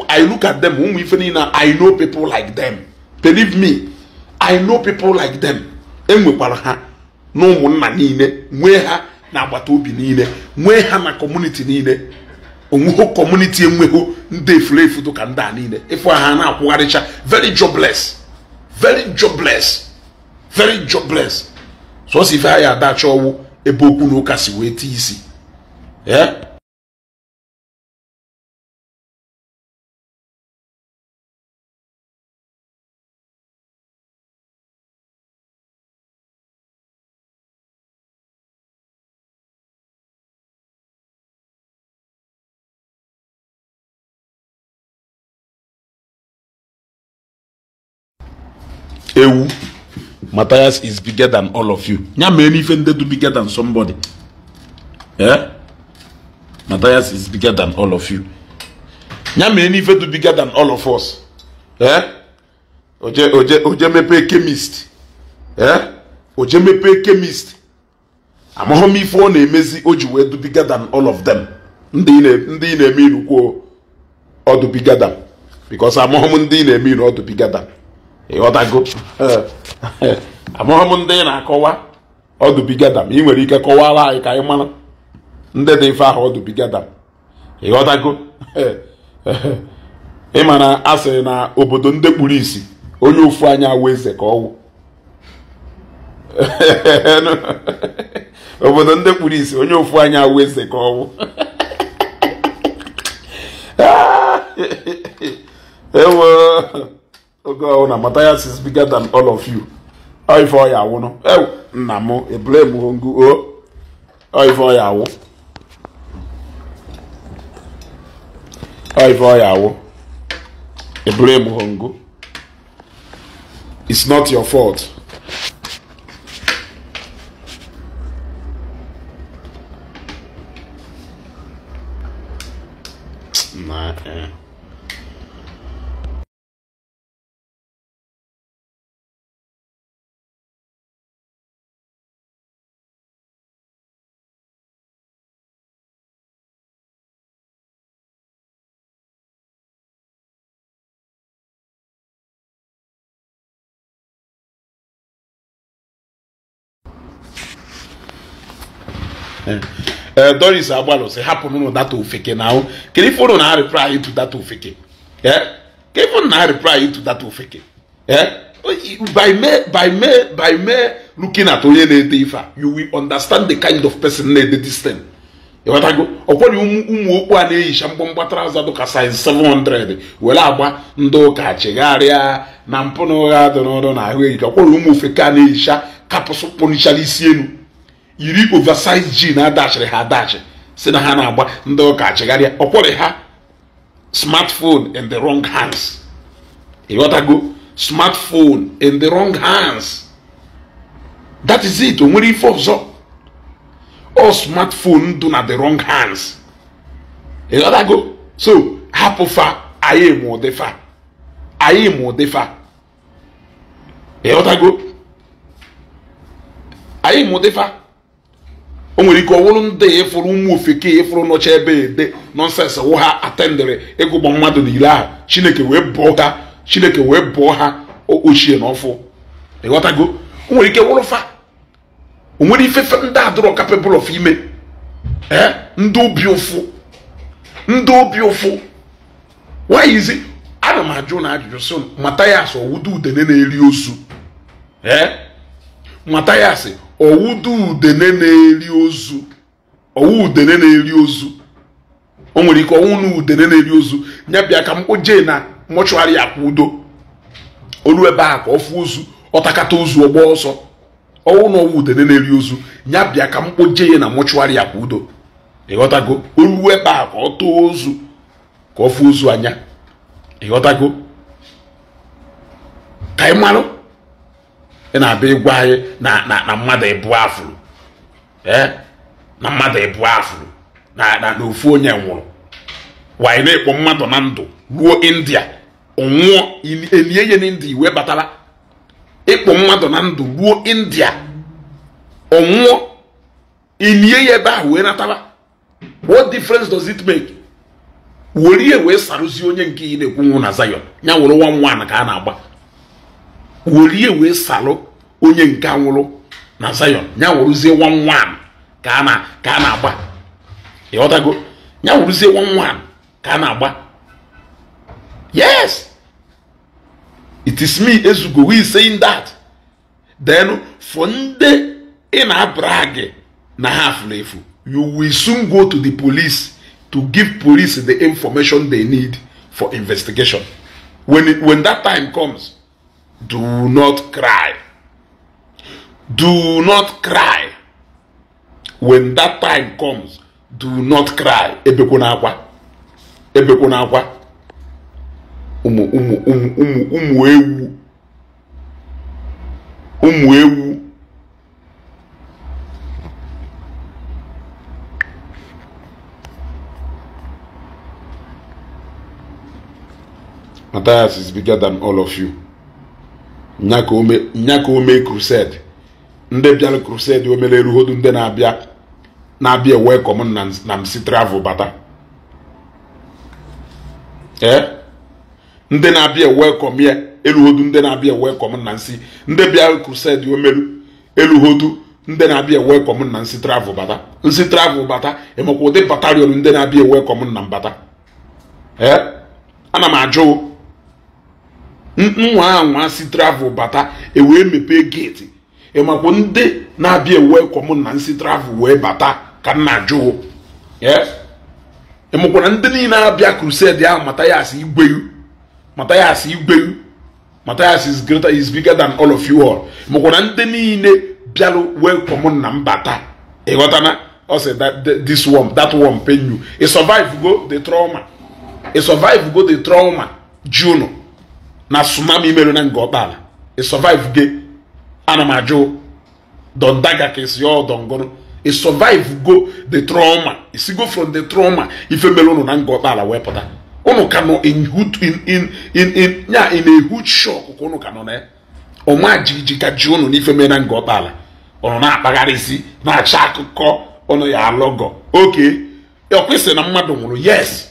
i look at them ụmụ ife niile i know people like them believe me i know people like them enwekwara ha na nna niile nwee ha na agbata obi niile nwee ha na kọmuniti niile onweghị kọmuniti enweghị ndị efulefu ka ndị a niile ịfụ ha na-akwụgharịcha very jobless very jobless very jobless so ife ha ya adachọ ọwụ ebe okwu na ụka si wee isi ewu Matthias is bigger than all of you ya mee n'ife ndị dị bigger than somebody eh Matthias is bigger than all of you ya mee n'ife dị bigger than all of us eh oje oje oje mepee chemist eh oje mepee chemist amahụ m ife ọ na-emezi o ji wee dị bigger than all of them ndị ị na-eme iru kwuo ọdụ bigger than because amahụ m ndị ị na-eme iru ọdụ than ịghọtago eh. amụghị m ndị ị na-akọwa ọdụbigadam ị nwere ike kọwara anyị ka anyị mara ndị dị mfe ahụ ọdụbigadam ịghọtago eh. ịma na a na obodo ndị kpuru onye ofu anya awụ eze ka obodo ndị kpuru isi onye ofu anya awụ eze ka ọwụ ah. oge ọwụna oh, Matthias is bigger than all of you ife ọya awụnụ ewu eh, nna m ebrem ngu o ife ọya awụ ife ọya awụ ebrem ngu it's not your fault na eh Eh, eh, Doris Agbalu sị hapụnụ data ofeke na ahụ kedu ife ụnụ na-arịpra ịtụ data ofeke eh, kedu ife ụnụ na-arịpra ịtụ data ofeke by me by me by me looking at onye na-ede ife a you will understand the kind of person na-ede this thing ịghọtago ọkwari ụmụ okpu a na-eyicha mgbọmgba traụza dụka size 700 were agba ndị ụka chegharịa na mpụ na ụgha dị n'ọrụ na ahụ eyicha ọkwari ụmụ ofeke a na-eyicha kapụsụ kpụnichara isi elu yiri oversize ji na-adachiri ha adachi si na ha na-agba ndị ụka achịgharịa ọkwọrị ha smartphone in the wrong hands ịghọtago smartphone in the wrong hands that is it o nwere ife ọzọ ọ smartphone dụ na the wrong hands ịghọtago so hapụ fa anyị ma fa anyị ma ụdịfa ịghọtago anyị ma ụdịfa o nwere ike ọwụrụ ndị ịfụrụ ụmụ ofeke ịfụrụ nọcha ebe ede nọnsensị wụ ha atendịrị ịgụgbọ mmadụ n'ile ahụ chineke wee bụọ ha chineke wee bụọ ha ochie na ọfụ ịghọtago o nwere ike fa o nwere ifefe ndị adụrọ kapịbụl of ime ee eh? ndị obi ụfụ ndị obi ụfụ wayizi ana m ajụ na ajụjụ sị matayas ọwụdo udene na-eri ozu ee eh? ọwụdu udene na-eri ozu ọwụ udene na-eri ozu o nwere ike ọnwụ na udene na-eri ozu ya bịa ka m kpoje na mọchụarị akwụ udo olu ebe a ka ọ fụ ozu ọtakata ozu ọgba ọsọ ọnwụ na ọnwụ udene na-eri ozu ya bịa ka m kpoje na mọchụarị akwụ udo ịghọtago olu ebe a ka ọ tụọ ozu ka ọ fụ ozu anya ịghọtago ka ị marụ ị na-abịa ịgwa anyị na mmadụ ịbụ afụrụ na mmadụ ịbụ afụrụ e? na ofu onye nwụrụ wanyị na-ekpo mmadụ na ndụ ruo india ọnwụọ elie ya n'india iwe batara ịkpọ mmadụ na ndụ ruo india ọnwụọ ilie ya ebe a wee natara what difference does it make were ihe wee sarụzie onye nke ị na-ekwu nwụ na Zion ya were nwa nwa ka a na-agba welie wee salụ onye nke nwụrụ na Zion ya wụrụzie one one ka a na-agba ịghọtago ya wụrụzie one one ka a na-agba yes it is me ezugo we saying that then for ndị ị na-abrag na ha afụla efu you will soon go to the police to give police the information they need for investigation when, it, when that time comes Do not cry. Do not cry. When that time comes, do not cry. Ebekwana akwa. Ebekwana akwa. Ụmụ ụmụ ụmụ ụmụ ụmụ ewu. Ụmụ ewu. Matthias is bigger than all of you. nyaka ome crusade ndị bịara crusade omere eruhodu ndị na-abịa na-abịa welcome na msi travel bata ee eh? ndị na-abịa welcome ya eruhodu ndị na-abịa welcome na nsi ndị bịara crusade omeru eluhodu ndị na-abịa welcome na nsi travel bata nsi travel bata emekwa ụdị batalion ndị na-abịa welcome na mbata ee eh? ana m ajụ nwa anwa si travel bata ewee mepee geeti ịmakwa ndị na-abịa ewee kọm na nsi travel wee bata ka nna jụụ ịmụkwara e ndị niile abịa crusade ahụ Matthias Igweu Matthias Igweu Matthias is greater is bigger than all of you all e mụkwara ndị niile bịarụ wee kọm na mbata ịghọtana ọ sị this one that one pain you ị e survive go the trauma ị survive go the trauma junu na tsunami imerụ na ala ị survive gị ana m ajụ dondaga ka esi ọ dongoro ị survive go the trauma isigo from the trauma ife mere ụnụ na ala wee pụta ụnụ ka nọ in ya in a huge shock ka ụnụ ka nọ na ya ọma jijiji ka ji ụnụ n'ife mere na Ngọkpala ụnụ na-akpagharịzi na acha akụkọ ụnụ ya alọgọ oke ọ kwesịrị na mmadụ nwụrụ yes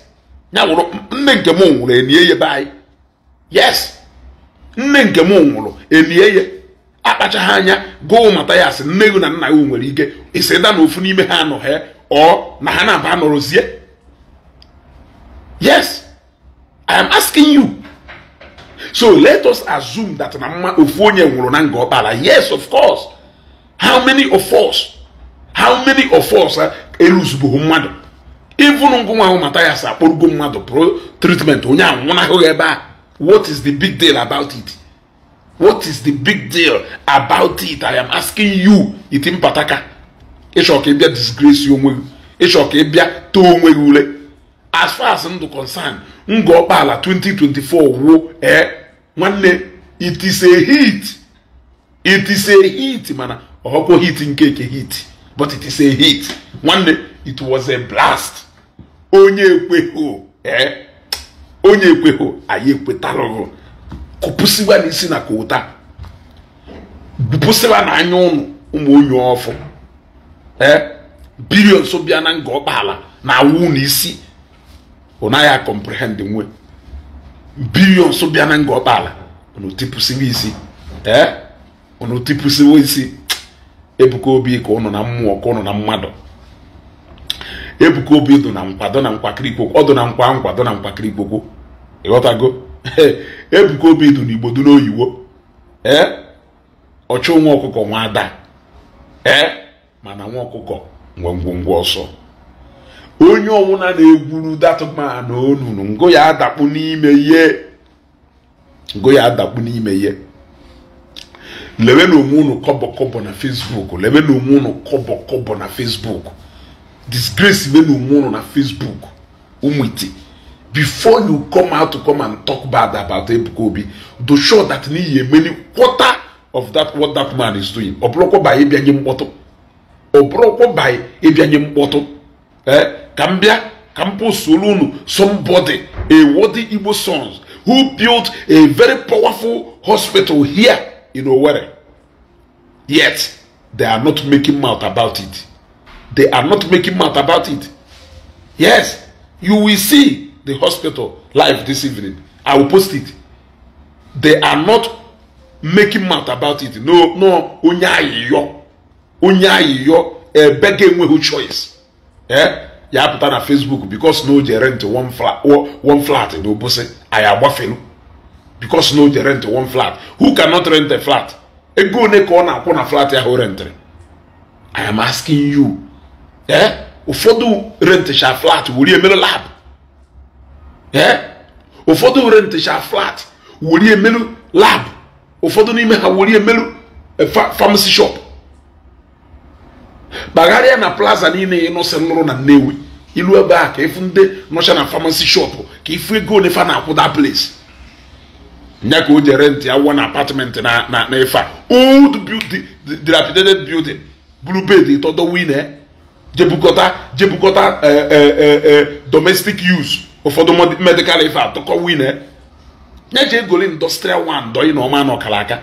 ya nwụrụ nne nke m nwụrụ elie ya be anyị yes nne nke m nwụrụ elie ya akpachaghị anya gụụ mata ya asị nne na nna ya nwere ike isi da na ofu n'ime ha anọghị ọ na ha na-aba nọrọzie yes i am asking you so let us assume that na mma ofu onye nwụrụ na nga ọkpara yes of course how many of us how many of us eruzugbughị mmadụ ịvụrụ ngụ ahụ mata mmadụ pro tritment onye anwụnahụghị ebe a What is the big deal about it? What is the big deal about it? I am asking you, itim pataka. Ịchọ ka ị bịa disgrace onwe gị. Ịchọ ka ị bịa too onwe gị ule. As far as ndụ concern, ngọ ọkpala 2024 wuo ee nwanne it is a hit. It is a hit mana ọkwa hit nke eke hit but it is a hit. Nwanne it was a blast. Onye ekweghị o ee. Eh? onye ekwehụ anyị ekwetalụghụ kụpụsịwa n'isi na kota bupụsịwa na anya ụnụ ụmụ onye ọfụ ee biri nso bịa na nga ọkpala na awụ n'isi isi ọ naghị akọmprehend nwe biri nso bịa na nga ọkpala unu tipụsịwa isi ee unu tipụsịwa isi ebuka obi ka ụnụ na mmụọ ka ụnụ na mmadụ ebuka obi dụ na nkwado na nkwakịrị ikwokwo ọdụ na nkwa nkwado na nkwakịrị ikwokwo ịghọtago ebuka obi dụ na igbo n'oyiwo ee ọchụ nwa ọkụkọ nwa ada ee mana nwa ọkụkọ ngwongwongwo ọsọ onye ọwụna na-egwuru datụma na onunu ngo ya adakpu n'ime ihe ngo ya adakpu n'ime ihe lewe na onwe unu kọbọkọbọ na fesbuk lewe na onwe unu kọbọkọbọ na fesbuk disgrace wey no mu no na facebook umwete before you come out to come and talk bad about ebuka obi to show that ni ye many quarter of that what that man is doing ọbụrụkwa by ebi anyị mkpọtụ ọbụrụkwa ba ebi eh ka m bịa ka m pụsoro unu somebody a worthy igbo sons who built a very powerful hospital here in owerri yet they are not making mouth about it. They are not making mouth about it. Yes, you will see the hospital live this evening. I will post it. They are not making mouth about it. No, no, onye ayiyo. Onye ayiyo, ebege eh, enweghị choice. Eh? Ya apụta na Facebook because no, o je rent one flat, one flat na Obosi, anyị agbafelu. Because no, o je rent one flat. Who cannot rent a flat? Ego one ka ọ na-akwụ na flat ahụ rentere? I am asking you ee eh? ụfọdụ rentịcha flat wuri emere lab ee eh? ụfọdụ rentịcha flat wuri emelu lab ụfọdụ n'ime ha wuri emelu eh, famasi shop kpagharịa na plaza niile ị nụsị nụrụ na nnewi ilu ebe a ka ịfụ ndị nọcha na famasi shop ka ịfụ ego ole fa na-akwụ da place nye ka o ji rent ya wụọ na apatment na na efe a old building dilapidated building blue bed ịtọdọ wine jebukọta jebukọta eh, eh, eh, domestic use ụfọdụ medical ife atụkọ wine nye je egoli industrial one na ọma na ọkalaka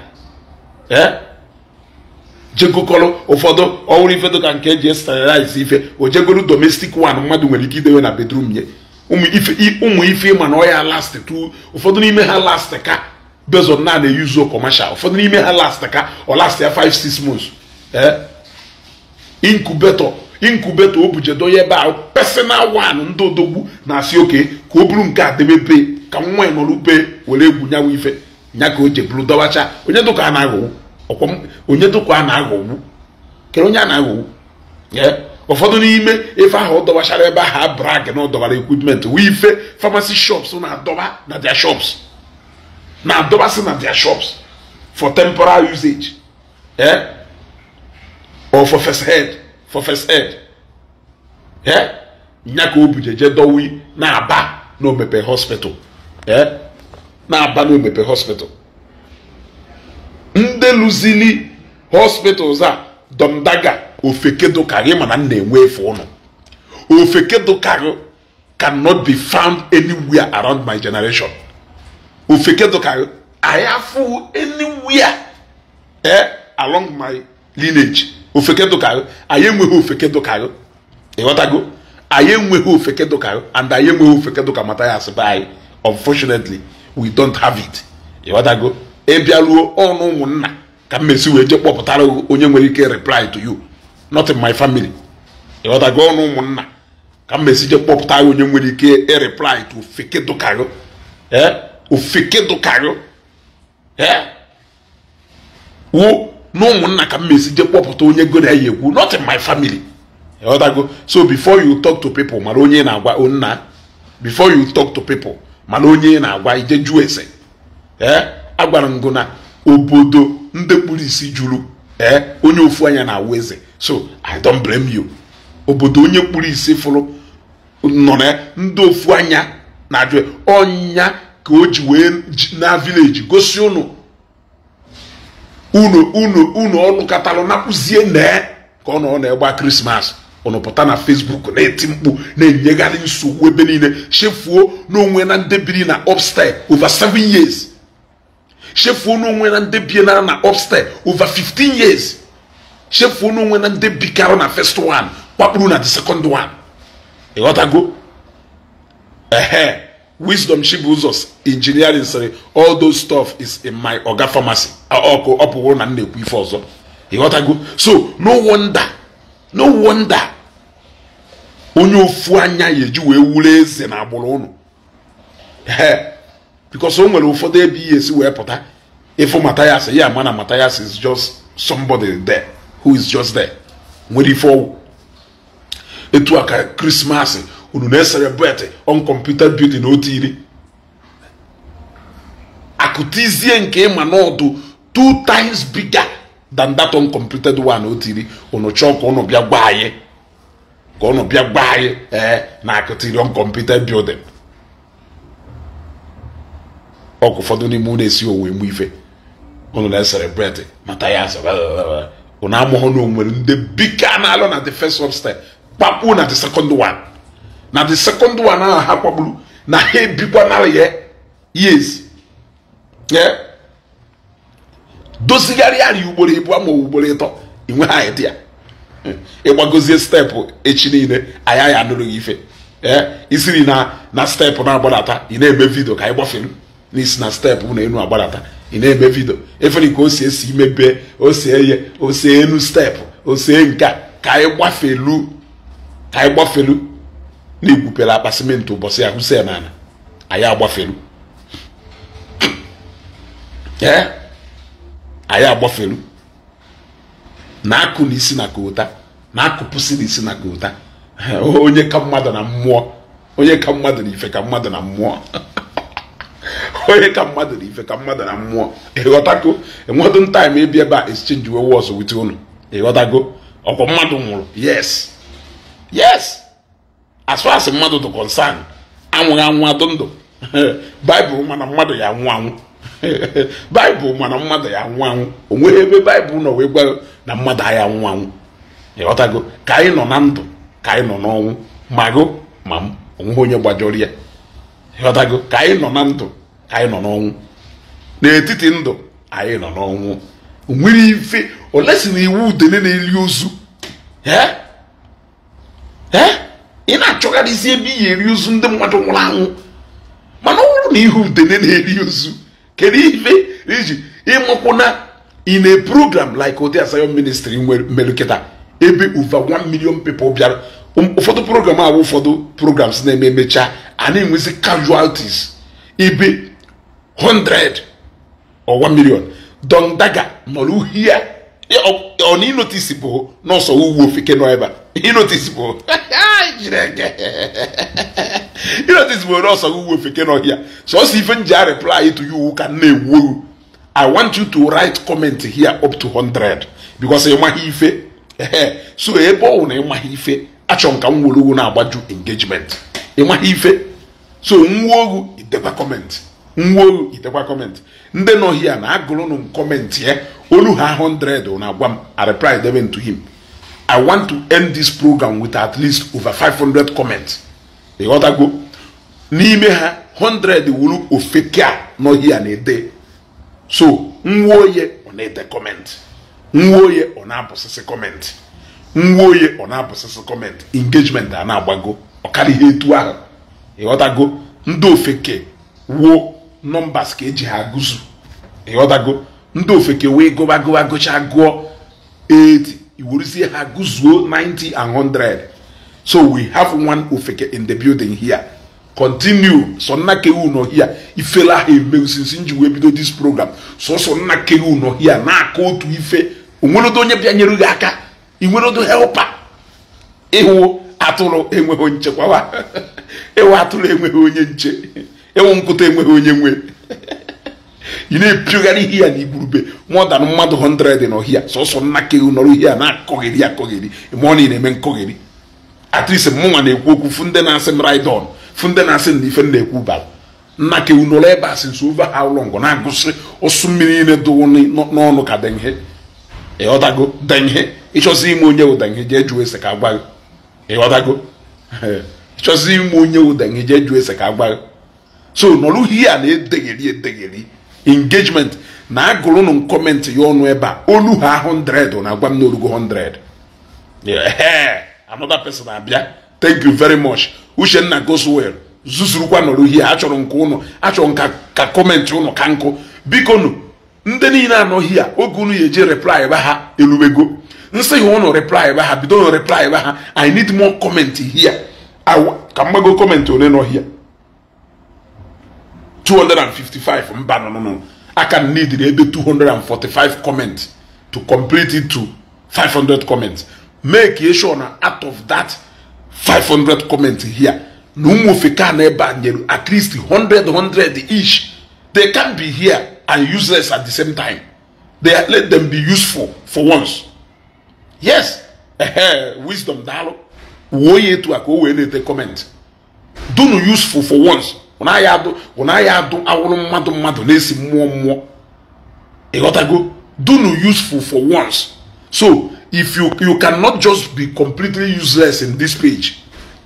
jegokọrọ ụfọdụ ọhụrụ ife dịka nke eji esterilize ife o jegolu domestic one mmadụ nwere ike idewe na bedroom ya ụmụ ife ịma na ọ ya last tu ụfọdụ n'ime ha last ka bezon na na-eyuzo commercial ụfọdụ n'ime ha last ka ọ last ya 5 6 months incubator incubator o bujedo ya ebe ahụ personal one ndị odogwu na-asị oke ka o buru nke a debe pe ka nwa ya e nọrọ ube were egwu nyawa ife nya ka o jeburu dọwacha onye dụka a na-aghọgbu onye dụka a na-aghọgbu kere onye a na-aghọgbu ụfọdụ n'ime efe ahụ ọ dọwachara ebe ahụ a brag na ọ dọwara equipment wee ife famasi shops na-adọba na dia shops na-adọbasị na dia shops for temporal usage or for first for first aid ee eh? nya ka o je dowi na-aba na omepe hospital ee eh? na-aba na omepe hospital ndị lụzili hospitals a domdaga ofekedokarị mana m na-enwe efe ụnụ ofekedokarị cannot be found anywhere around my generation ofekedokarị I have anywhere eh, along my lineage ofeke dụkarụ anyị enweghị ofeke dụkarụ ịghọtago anyị enweghị ofeke dụkarụ and anyị enweghị ofeke dụka mata ya asị anyị unfortunately we don't have it ịghọtago ịbịaruo ọnụ ụmụnna ka mmezi wee jee kpọpụtara onye nwere ike reply to you not in my family ịghọtago ọnụ ụmụnna ka mmezi jee kpọpụta onye nwere ike ireply to ofeke dụkarụ ofeke eh? dụkarụ eh? wụ na ụmụnna ka m mesi je kpọpụta onye go na ya ekwu not in my family ọdago so before you talk to people mara onye na-agwa nna before you talk to people mara onye na-agwa ije jụọ ese eh? agwara m gụ na obodo ndị kpuru isi juru eh? onye ofu anya na-awụ eze so i don't blame you obodo onye kpuru isi fụrụ nọ na ndị ofu anya na-ajụ ọnya ka o ji wee na village gosi ụnụ unu unu unu ọnụ katalụ napụzie nee ka ọ nọ na-egba krismas ụnụ pụta na fesbuk na-eti mkpu na-enyegharị nsogbu ebe niile chefuo n'onwe na ndebiri na upstair over 7 years chefuo n'onwe na ndebi na na upstair over 15 years chefuo n'onwe na ndebi karụ na first one kwakpuru na the second one ịghọtago ehe wisdom chibuzo's engineering sịrị all those stuff is in my oga pharmacy ọkụ ọ pụrụ na m na-ekwu ife ọzọ ịghọtago so no wonder no wonder onye ofu anya ya eji wee wuru eze na agbụrụ ụnụ ee because o nwere ụfọdụ ebe ihe esi wee pụta ịfụ Matthias ya ama na Matthias is just somebody there who is just there nwere ife ọgwụ etu a ka krismas unu na-eserebet on computer building otu iri akụtizie nke ịma n'ọdụ two times bigger than that uncompleted one o tiri unu chọọ ka unu bịa gba anyị ka unu bịa gba anyị ee eh, na akụtiri uncompleted building ọkụ ụfọdụ n'ime unu esi owe mgbe ife unu na-esere bred mata ya unu amụghụ na onwere ndị bike a na-alụ na the first step kpakpu na the second one na the second one ahụ ha kpagburu na ha ebikwa narị ya years yeah. dozigharịa anyị ugboro ịbụọ ma ugboro ịtọ inweghị idea ịgbagozie steepụ echi niile anyị anyị anụrụ gị ife ee isiri na na steepụ na-agbadata ị na-eme vidio ka anyị gbafelu n'isi na steepụ na enu agbadata ị na-eme vidio efere ka o si esi imebe o si eye o si enu steepụ o si e nke a ka anyị gbafelu ka anyị gbafelu na igwupere akpa simenti ụbọchị ya ya n'ala anyị agbafelu ee anyị agbafelu na-akụ n'isi na kota na-akụpụsị n'isi na kota onye ka mmadụ na mmụọ onye ka mmadụ na ife ka mmadụ na mmụọ onye ka mmadụ na ife ka mmadụ na mmụọ ịghọtago enwedụ ntaim ebi ebe a exchange we wọs wit unu ịghọtago ọkwa mmadụ nwụrụ yes yes as far mmadụ dị concern anwụghị anwụ adụ ndụ baịbụl mana mmadụ ya anwụ anwụ baịbụl mana mmadụ ya nwụ anwụ o ebe baịbụl nọ wee gwa na mmadụ aya nwụ anwụ ịghọtago ka anyị nọ na ndụ ka anyị nọ n'ọnwụ ma gụ ma m onweghị onye gbajọrọ ya ịghọtago ka anyị nọ na ndụ ka anyị nọ n'ọnwụ n'etiti ndụ anyị nọ n'ọnwụ nwere ife olesi na iwu udele na-eri ozu ị na-achọgharịzi ebe ị ga-eri ozu ndị mmadụ nwụrụ anwụ mana ọ bụrụ na ihe udele na-eri ozu kedu ife iji ịmụkwụna in a program like ode Asayo ministry nwere kịta ebe uva 1 million people bịara um, ụfọdụ program ahụ ụfọdụ programs na-eme emecha a enwezi casualties ibe 100 or 1 milion dondaga nọrọ uhie ọ na ịnotisi bụ n'ọsọ ugwu ofike nọ ebe a ịnotisi bụ ịnotisi bụ nọọsụ ugwu ofike n'ọhịa si ife nji a reply to you ka nne na i want you to write comment here up to 100 because ịmaghị ife so ebe ọ na ịmaghị ife achọ m ka m na-agbaju engagement ịmaghị ife so nwuo ogu ideba comment nwo itekwa kọmentị ndị nọ hia na agụrụnụ kọmentị ya eh, olu ha 100 na agwa m areply debe ntu him i want to end this program with at least over 500 comments ịghọtago n'ime ha 100 wuru ofeke a nọ hia na-ede so nwa oye ọ na-ede kọmentị nwa oye ọ na-abụsịsị kọmentị nwa oye ọ na-abụsịsị kọmentị engagement a na-agbago ọ karịa ihe etu ahụ ịghọtago ndị ofeke wuo nọmbas ka eji ha gụzụ ịghọtago ndị ofeke wee gụba gụba gụcha gụọ 8 iweruzie ha gụzuo 90 and 100 so we have one ofeke in the building here continue so nna kewu nọ here ifela ha emewu usisi nji wee bido this program sọsọ nna kewu nọ here na-aka otu ife onwerodo onye bịanyere gị aka inwerodo helpa ịhụ atụrụ enweghị nchekwa ewe atụrụ enweghị onye nche enwe nkụta enweghị onye nwe ị na-epiogharị ihe ya na igwurube mọdan mmadụ 100 n'ọhịa sọsọ nna ke nọrọ ihe a na-akọghịrị akọghịrị ma ọ na na-eme nkọghịrị atrisi mụnwa na-ekwu okwu fụ ndị na-asị m raidon fụ ndị na-asị na ife na-ekwu bara nna ke nọrọ ebe a sị nso ova ha ụlọngụ na-agụsị ụsụ mmiri niile dụwụ n'ọnụ ka denhe ịghọtago denhe ịchọzi ime onye ụdenhe jee jụọ ese ka agbaghị ịghọtago ịchọzi ime onye ụdenhe jee jụọ ese ka agbaghị so nọrụ ihe a na-edegheri edegheri engagement na agụrụnụ kọmentị ya ọnụ ebe a olu ha 100 na-agwa m na orugo 100 eh, another person abịa thank you very much Uchenna goes well zuzurukwa nọrụ ihe achọrọ nke ụnụ achọrọ nka ka kọmentị ụnụ ka nkụ biko nụ ndị niile anọghị ya oge unu ya eje reply ba ha eluwego nsị ha ụnụ reply ba ha bido nụ reply ba ha i need more comment here ka mgbago kọmentị ole nọ 255 mba no no no I can need maybe 245 comments to complete it to 500 comments make you sure na out of that 500 comments here na ụmụ ofeke na ebe a nyere at least 100 100 each they can be here and useless at the same time they let them be useful for once yes wisdom daalụ wuo ya etu a ka o wee comment dunu useful for once naghị adụ ọ naghị adụ awụrụ mmadụ mmadụ na-esi mmụọ mmụọ ịghọtago dunu useful for once so if you you cannot just be completely useless in this page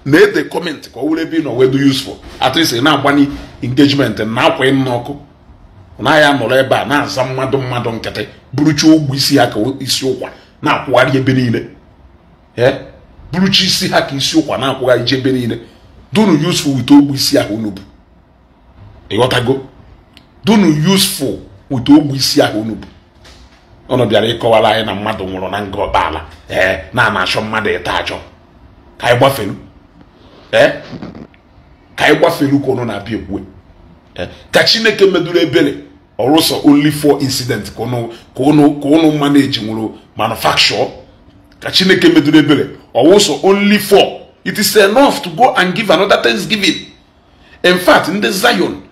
na ede comment ka ọ wụrụ ebe ị nọ wee do useful at least ị na-agbanye engagement na akwa ịnụ ọkụ naghị anọrọ ebe a na-aza mmadụ mmadụ nkịtị buruchi ogwu isi ha ka isi ụkwa na-akwụgharị ebe niile buruchi isi ha ka isi ụkwa na-akwụgharị ebe niile dunu useful wit ogwu isi ahụ unu bụ ịghọtago dunu useful ụtụ ogbu isi ahụ unu bụ ọnụ bịara ịkọwara anyị na mmadụ nwụrụ na nga ọkpaala ee na ana achọ mmadụ ịta achọ ka anyị gbafelu ee ka anyị gbafelu ka unu na-abịa ekwue ka chineke meduru ebere ọrụsọ only four incident ka unu manage nwụrụ manufacture ka chineke meduru ebere ọwụsọ only four it is enough to go and give another thanksgiving in fact ndị zion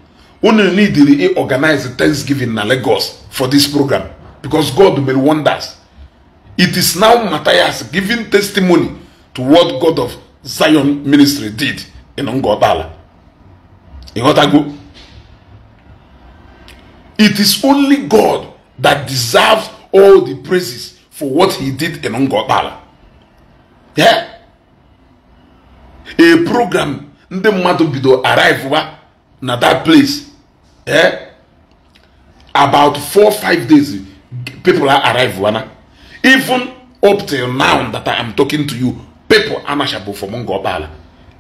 unu neediri i organize thanksgiving na Lagos for this program because God made wonders it is now Matthias giving testimony to what God of Zion ministry did in Ngobala ịghọtago it is only God that deserves all the praises for what he did in Ngobala yeah a program ndị mmadụ bido arrive na that place eh about four five days people are arrive wana even up till now that i am talking to you people anashabo for mongo obala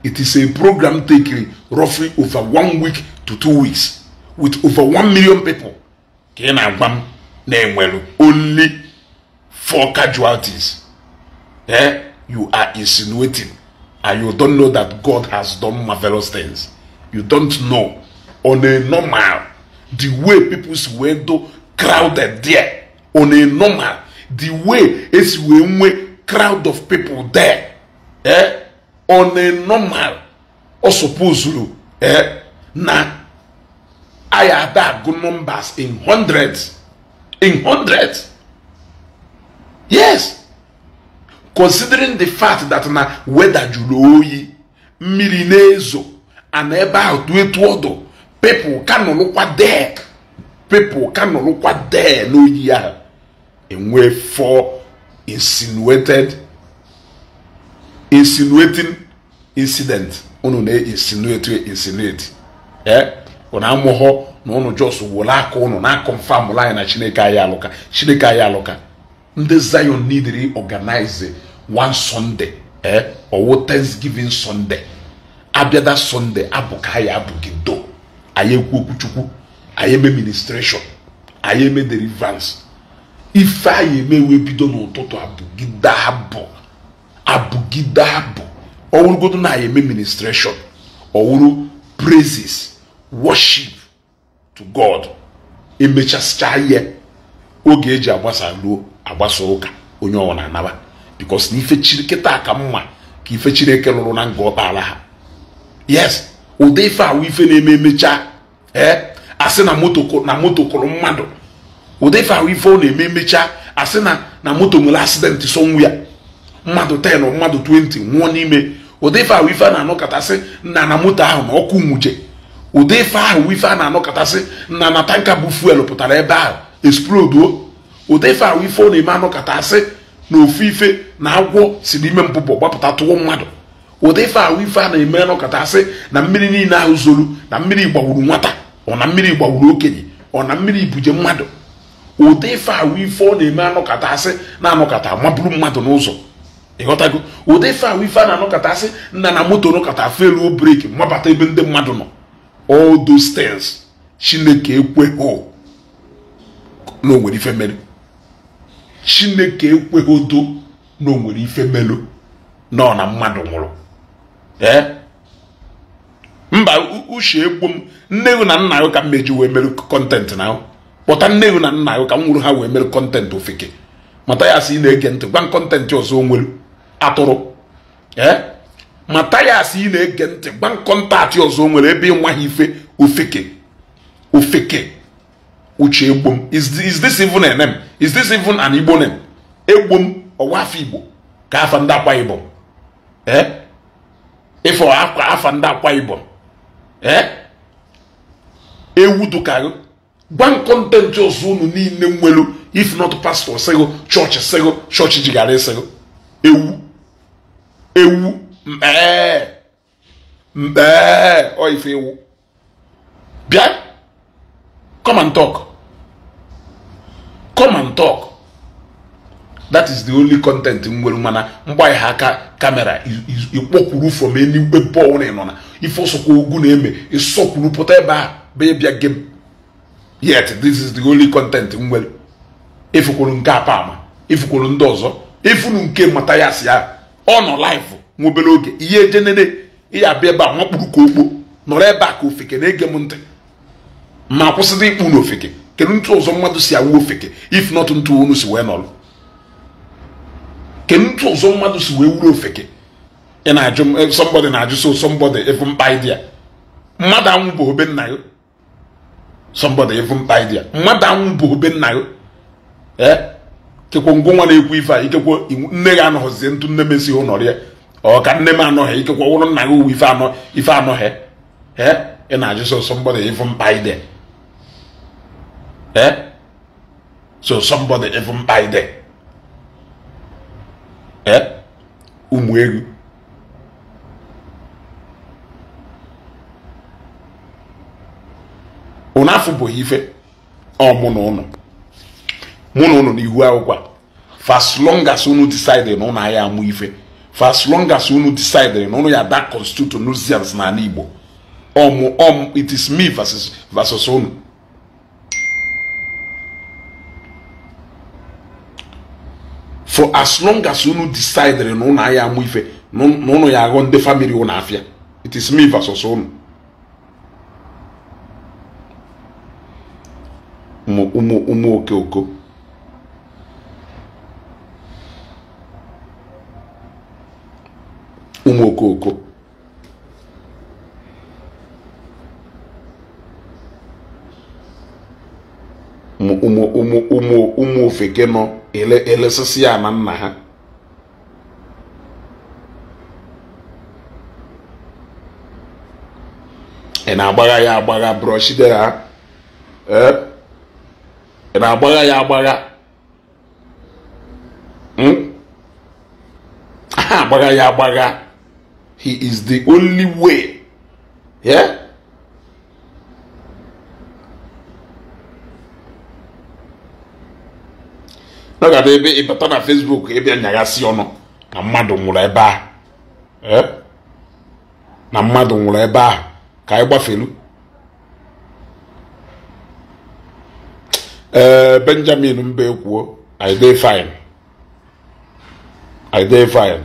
it is a program taking roughly over one week to two weeks with over one million people ka ị na-agwa m na-enwelu only four casualties eh you are insinuating and you don't know that god has done marvelous things you don't know on a normal the way people's si do crowded there on a normal the way it's wee nwee crowd of people there eh? on a normal suppose supposuru eh? na anyị ada agụ numbers in hundreds in hundreds yes considering the fact that now whether you oyi mmiri na and about ahụ tu etu people ka nọrọkwa there people ka nọrọkwa there n'oyi ahụ enwe for insinuated insinuating incident unu na-insinuate insinuate ee unu amụghọ na unu jos wụrụ aka unu na-akọnfam anyị na chineke anyị alụka chineke anyị alụka ndị zion nidiri organize one sunday ee eh? owo thanksgiving sunday abịada sunday abụ ka anyị anyị ekwu okwuchukwu anyị eme ministration anyị eme deliverance ife anyị eme bido n'ụtụtụ abụgide abụ abụgide abụ ọwụrụgodo na anyị eme ministration ọwụrụ praises worship to god emechasịcha ihe oge eji agbasa ruo agbasa ụka onye ọwa na-anaba because na ife chiri kịta ka mma ka ife chineke lụrụ na nga ọ ha yes ụdị ife awụ ife na-eme emechaa e, asị na moto na moto kụrụ mmadụ ụdị ife awụ ife ọ na-eme emechaa asị na na moto nwere asidenti ya mmadụ 10 mmadụ 20 nwụọ n'ime ụdị ife ahụ ife a na-anọkọtasị nna na moto ahụ na ọkụ nwuche ụdị ife ahụ ife a na-anọkọtasị nna na tanka bụ fuel pụtara ebe ahụ esploduo ụdị ife ahụ ife ọ na-eme anọkọtasị na ofu ife na agwọ si n'ime mpụpụ gbapụta tụọ mmadụ ụdị ife ahụ ife a na-eme nọkọta sị na mmiri niile ahụ zoro na mmiri gbawuru nwata ọ na mmiri gbawuru okenye ọ na mmiri buje mmadụ ụdị ife ahụ ife ọ na-eme anọkọta asị na-anọkọta maburu mmadụ n'ụzọ ịghọtago ụdị ife ahụ ife a na-anọkọta asị nna na moto nọkọta feruo breki mabata ebe ndị mmadụ nọ all those things chineke ekweghị na onwere ife melu chineke ekweghị odo na onwere ife melu nọ na mmadụ nwụrụ Eh? mba uche egbu m nne na nna gị ka mmeji wee mere kọntentị na kpọta nne na nna gị ka m nwụrụ ha wee mere kọntentị ofeke mata ya asị ị na-ege ntị gwa kọntentị ọzọ nwere atụrụ eh? mata ya asị ị na-ege ntị gwa kọntaktị ọzọ nwere ebe ị ha ife ofeke ofeke uche egbu m is this even a is this even an igbo name egbu m ọwa afọ igbo ka afa ndị akwa igbo ee eh? E ịfọ akwa afa ndị akwa ibom ewu dukago gwa kọntentị ọzọ unu niile nwelu if not pastor sịgo chọọchị sego, chọọchị jigara e ewu ewu mkpee o oh, ọife ewu bien? come and talk come and talk that is the only content nwere mana mgbanye ha aka kamera ịkpọkwuru from anywhere bọọlụ ị nọ na ife ogu na-eme ịsọkwuru pụta ebe a bịa bịa yet this is the only content nwere efukwuru nke apa ama efukwuru ndị ọzọ efunu nke mata ya si ya ọ nọ live nwobere oge ihe jenere ya abịa ebe a nwakpuru ka okpo nọrọ ebe a ka ofeke na-ege m ntị ma kwụsịta ịkpụ na ofeke kedu ntụ ọzọ mmadụ si awụ ofeke if not ntụ unu si wee nọrọ kedu ụzọ mmadụ si wee wuru ofeke ị na-ajụ eh, somebody na-ajụ so somebody efu mkpa idea mmadụ anwụ bụ obe nna ya somebody efu mkpa idea mmadụ anwụ bụ obe nna ya ee eh, kekwe ngwa nwa na-ekwu ife a ikekwe nne gị anọghịzie ntụ nne m esighị ụnọrị ya ọ ka nne m anọghị ikekwe ọwụrụ nna gị uwe ife anọ ife anọghị ee eh, ị na-ajụ so somebody efu mkpa idea ee so somebody efu mkpa idea ụmụ egwu ụnụ afụbụghị ife ọmụ na ụnụ mụ na ụnụ n'ihu akwụkwọ long as unu decide na ụnụ agha amụ ife long as unu decide na ụnụ ya da constitution na Igbo ọmụ ọmụ it is me versus versus unu As long as unu decide le non a ya mwife Non a ya gonde family un afya It is mi vaso son Omo okey okey efeke nọ elesisi ya na nna ha ị na-agbagha ya agbagha brọshide ha ị na-agbagha ya agbagha hmm? ha agbagha ya agbagha he is the only way yeah? nọgada ebe ịbata na fesbuk ịbịa nyaghasị ọnụ na mmadụ nwụrụ ebe ahụ e? na mmadụ nwụrụ ebe ahụ ka anyị gbafelu ee benjamin mba ekwuo i dey fine i dey fine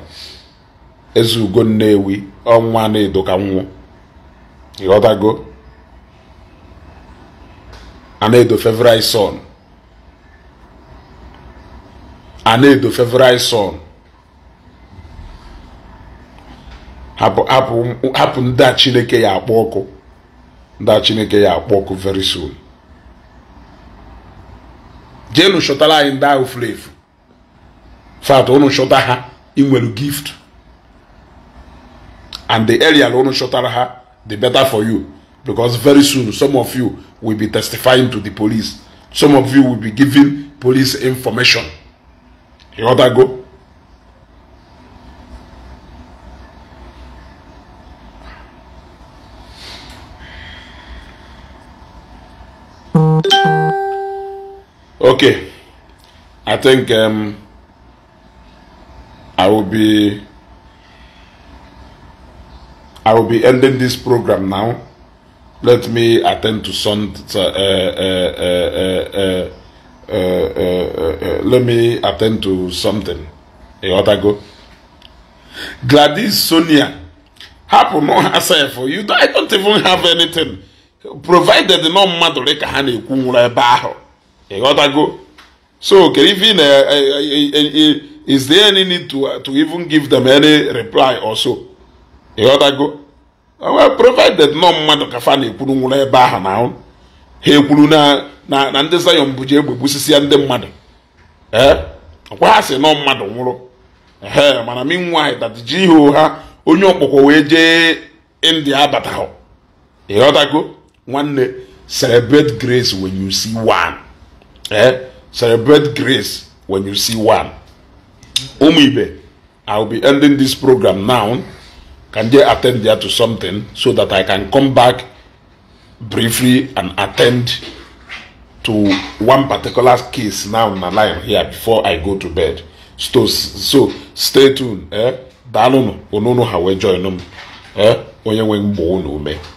eze ugo nnewi ọnwa na-edo ka nwụọ ịghọtago a na-edo fevri son Anedo favorite son hapụ hapụ hapụ ndị a Chineke ya akpọ ọkụ ndị Chineke ya akpọ ọkụ very soon jenu chọtara anyị ndị ahụ furu efu fat unu chọta ha ị gift and the area unu chọtara ha the better for you because very soon some of you will be testifying to the police some of you will be giving police information. You want that go? Okay, I think um, I will be I will be ending this program now. Let me attend to some. Uh, uh, uh, uh, uh uh, uh, let me attend to something ịghọtago Gladys Sonia hapụ nọ ha sef you don't, I don't even have anything provided nọ mmadụ dị ka ha na-ekwu nwụrụ ebe ahụ go. so kere ife na is there any need to, uh, to even give them any reply or so go. ịghọtago provided nọ mmadụ ka fa na-ekwuru nwụrụ ebe ahụ na ahụ ha ekwuru na na ndị zayọn bụji egbe gbusisia ndị mmadụ ee ọkwa ha si nọ mmadụ nwụrụ ehe mana minwaanyị ji ihe ha onye ọkpọkọ wee jee india abataghọ ịghọtago nwanne celebrate grace when you see one eh celebrate grace when you see one ụmụ ibe i will be ending this program now can ten attend there to something so that i can come back briefly and attend to one particular case now in my life here before I go to bed. So, so stay tuned. Eh? Daalụ nụ, onunu ha wee join m. Eh? Onye nwe mgbo unu ume.